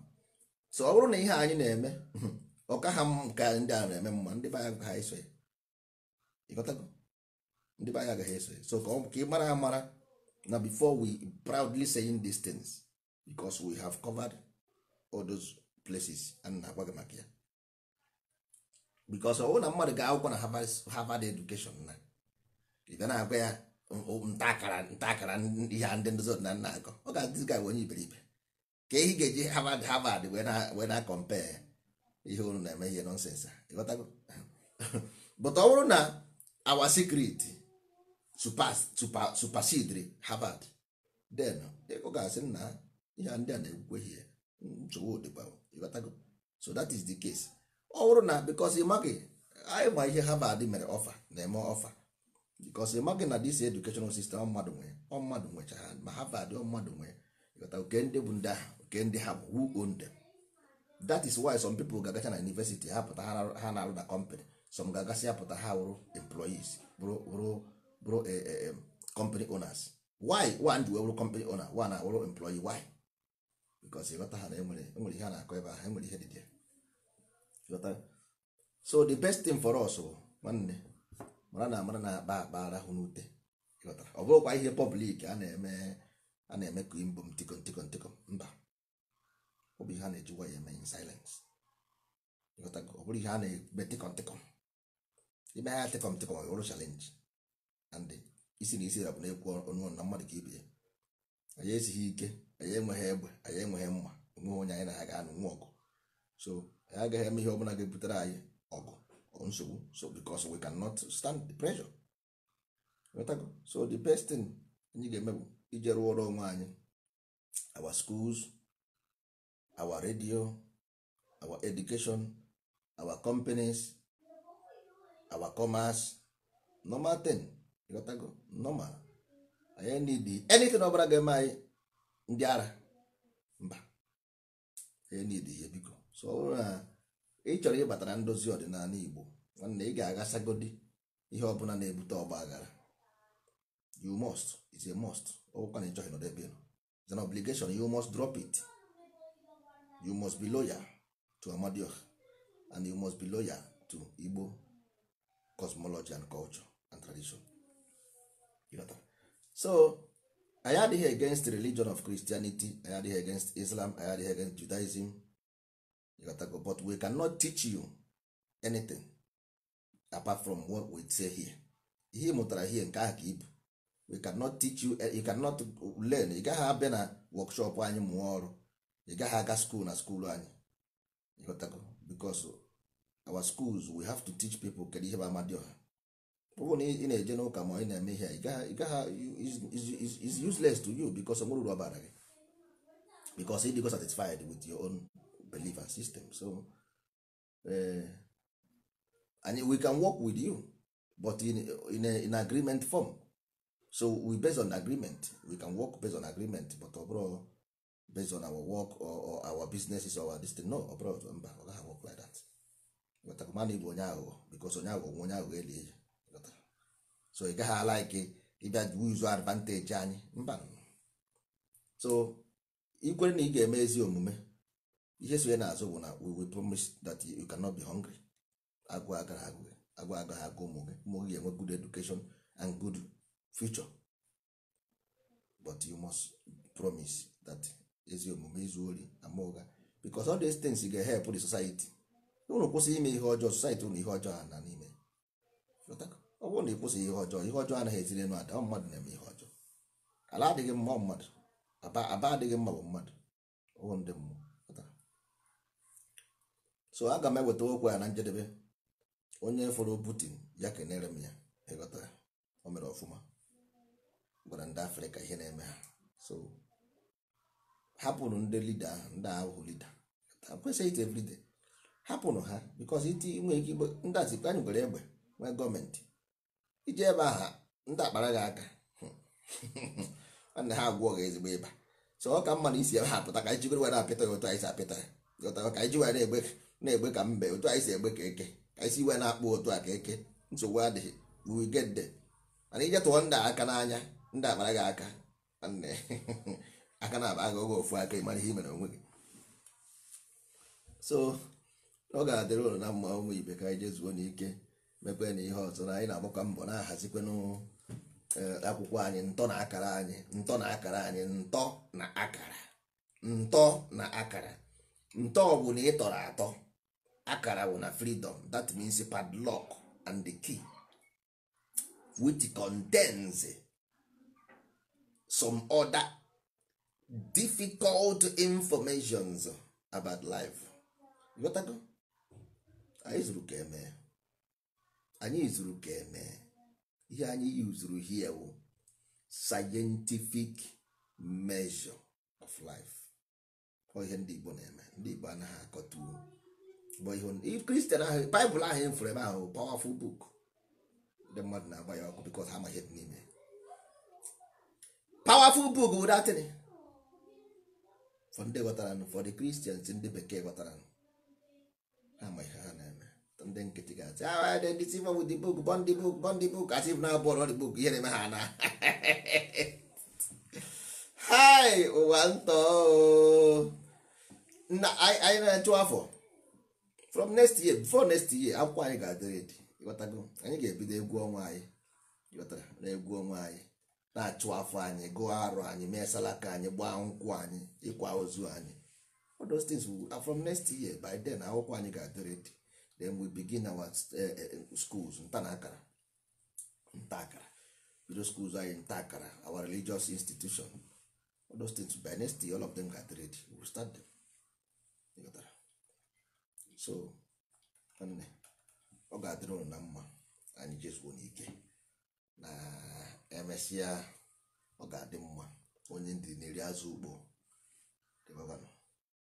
so ọ bụrụ na ihe anyị na-eme ọka ha nke ndị a na-eme mma ndị be anyị ha eso ya ịghọtago ndị be anyị agaghị eso ya so ka ị mara amara na before we proudly saying these things because we have covered all those places a na-agwa gị maka ya bikos oh, ọwụ na mmadụ ga-akwụkwọ na Harvard education na ị na-agwa ya ntaakara ntaakara ihe ndị ndozi ọdịnala na-akọ ọ ga-adịzi ga onye iberibe ka ehi ga-eji Harvard Harvard wee na compare ihe unu na-eme ihe nọnsensị but ọ bụrụ na our secret supersedri Harvard then ọ ga-asị na ihe ndị a na-ekwukwe ihe nsogbu dịkwa so that is the case ọ bụrụ na bikos ịmaghị anyị ma ihe Harvard mere ọfa na-eme ọfa bikos ịmaghị na dis educational system mmadụ nwere ọ mmadụ nwechara ma Harvard ọ mmadụ nwere ịghọta oke ndị bụ ndị ahụ oke ndị ha bụ who own them that is why some people ga-agacha na university ha pụta ha na-arụ na company some ga-agasị ya pụta ha wụrụ employees bụrụ bụrụ e, e, company owners why one ji wụrụ company owner one wụrụ employee why bikos ịghọta ha na enwere e ihe a na-akọ ebe ahụ enwere ihe dị so the best thing for us oh, nwanne mara na amara na-akpa akpa arahụ n'ute ọ bụrụkwa ihe pọblik a na-eme a na-eme ka imbom tiko ntiko ntiko mba ọ bụ ihe a na-ejikwa ya eme in silence ọ bụrụ ihe a na-eme tiko ntiko ime ha tiko ntiko ọ bụrụ chalenji and isi na isi ya na-ekwu ọnụ na mmadụ ka ibe ya anyị esighị ike anyị enweghị egbe anyị enweghị mma enweghị onye anyị na ya ga-anụ nwa ọgụ so ya agaghị eme ihe bụla ga-ebutere anyị ọgụ nsogbu so because we cannot stand the pressure so the best thing anyị ga-eme bụ ije rụọrọ onwe anyị our schools our radio our education our companies our commerce normal thing ịghọtago normal anyị need anything ọbara ga-eme anyị ndị ara mba anyị need ihe biko so na uh, ị chọrọ ịbata na ndozi ọdịnala igbo nwanne ị ga-agasagodi ihe ọbụla na-ebute ọgba aghara you must is a must ọbụkwa na ịchọghị nọdụ ebe it's an obligation you must drop it you must be lawyer to amadioha and you must be lawyer to igbo cosmology and culture and tradition so anyị adịghị against religion of christianity anyị adịghị against islam anyị adịghị against judaism ịghọtago but we cannot teach you anything apart from what we say here ihe mụtara here nke ahụ ka ibu we cannot teach you eh, you cannot learn ị gaghị abịa na workshop anyị mụọ ọrụ ị gaghị aga school na school anyị ịghọtago because our schools we have to teach people kedu ihe bụ amadioha ọ bụ na ị na-eje n'ụka ma ị na-eme ihe ị gaghị is useless to you because onwere uru ọ bara gị because ịdịgo satisfied with your own belief and system so uh, and we can work with you but in, in, a, in agreement form so we based on agreement we can work based on agreement but ọbụrụ oh, based on our work or, or our businesses or our destiny no ọbụrụ ọzọ mba ọ gaghị work like that mana ịbụ onye aghụghọ bikos onye aghụghọ nwe onye aghụghọ eli eji so ị gaghị ala ike ịbịa wizu advantage anyị mba so ikwere na ị ga-eme ezi omume oh, ihe so ya n'azụ bụ na we will promise that you cannot be hungry agụụ agara agụ agụ agaghị agụ ụmụ gị ụmụ gị ga-enwe good education and good future but you must promise that ezi omume izu ori ama ụgha because all these things ga-help the society unu kwụsị ime ihe ọjọọ society unu ihe ọjọọ ha na n'ime ọ bụrụ na ị kwụsị ihe ọjọọ ihe ọjọọ anaghị eziri enu ada ọ mmadụ na-eme ihe ọjọọ ala adịghị mma mmadụ aba adịghị mma bụ mmadụ ndị mmụọ so aga m eweta okwu ya na njedebe onye fọrọ Putin ya kenere m ya ịghọta ya o mere ọfụma gwara ndị afrịka ihe na-eme ha so hapụrụ ndị lida ahụ ndị ahụ lida kwesịghị ite everyday hapụrụ ha bikos iti nwee ike igbe ndị azikpe anyị gwere egbe nwee gọọmenti iji ebe aha ndị akpara gị aka nna ha agwọ gị ezigbo ịba so ọ ka mma na isi ebe ha pụta ka anyị jibere were apịta ya otu anyị si apịta ya ka anyị ji were egbe na-egbe ka mbe otu anyị si egbe ka eke ka isi iwe na-akpụ otu a ka eke nsogbu adịghị wigede mana ije tụọ ndị aka n'anya ndị akpara gị aka aka na-aba aga oge ofu aka ịmara ihe imere onwe gị so ọ ga-adịrị ụlọ na mma ụmụ ibe ka anyị jezuo n'ike mepee na ihe ọzọ na anyị na-agbakọ mbọ na-ahazikwenụ e, akwụkwọ anyị ntọ na akara anyị ntọ na akara anyị ntọ na akara ntọ na akara ntọ ọ bụ na ị tọrọ atọ akara wụ na freedom that means padlock and the key which contains some other difficult informations about life ịghọtago anyị zuru ka eme anyị zuru ka eme ihe anyị yuzuru hie wụ scientific measure of life ọ ihe ndị Igbo na-eme ndị Igbo anaghị akọta uwe. kristian ahụ baịbụl ahụ efere ebe ahụ pawafụl buk ndị mmadụ na-agba ya ọkụ bikos ha amaghị dị n'ime pawafụl buk bụ datịn ndị ghọtara ụfọdụ kristians ndị bekee ghọtara ha amaghị ha na-eme ndị nkịtị ga-asị ah dị ndị tiva wụ dị buk bọndị buk bọndị buk asị m na-abụ ọrụ dị buk ihe na-eme ha na hai ụwa ntọ anyị na-achụ afọ from next year before next year akwụkwọ anyị ga-adị redi ịghọtago anyị ga-ebido egwu ọnwa anyị ịghọtara na egwu ọnwa anyị na-achụ afọ anyị gụọ arụ anyị mee salaka anyị gbaa nkwụ anyị ịkwa ozu anyị all those things from next year by then akwụkwọ anyị ga-adị redi then we begin our eh, eh, schools nta na akara nta akara bido schools anyị nta akara our religious institution all by next year all of them ga-adị redi we will start them ịghọtara so ọ ga-adịrị ụnụ na mma anyị jezuo n'ike na emesịa ọ ga-adị mma onye ndị na-eri azụ ugbo dịbabanụ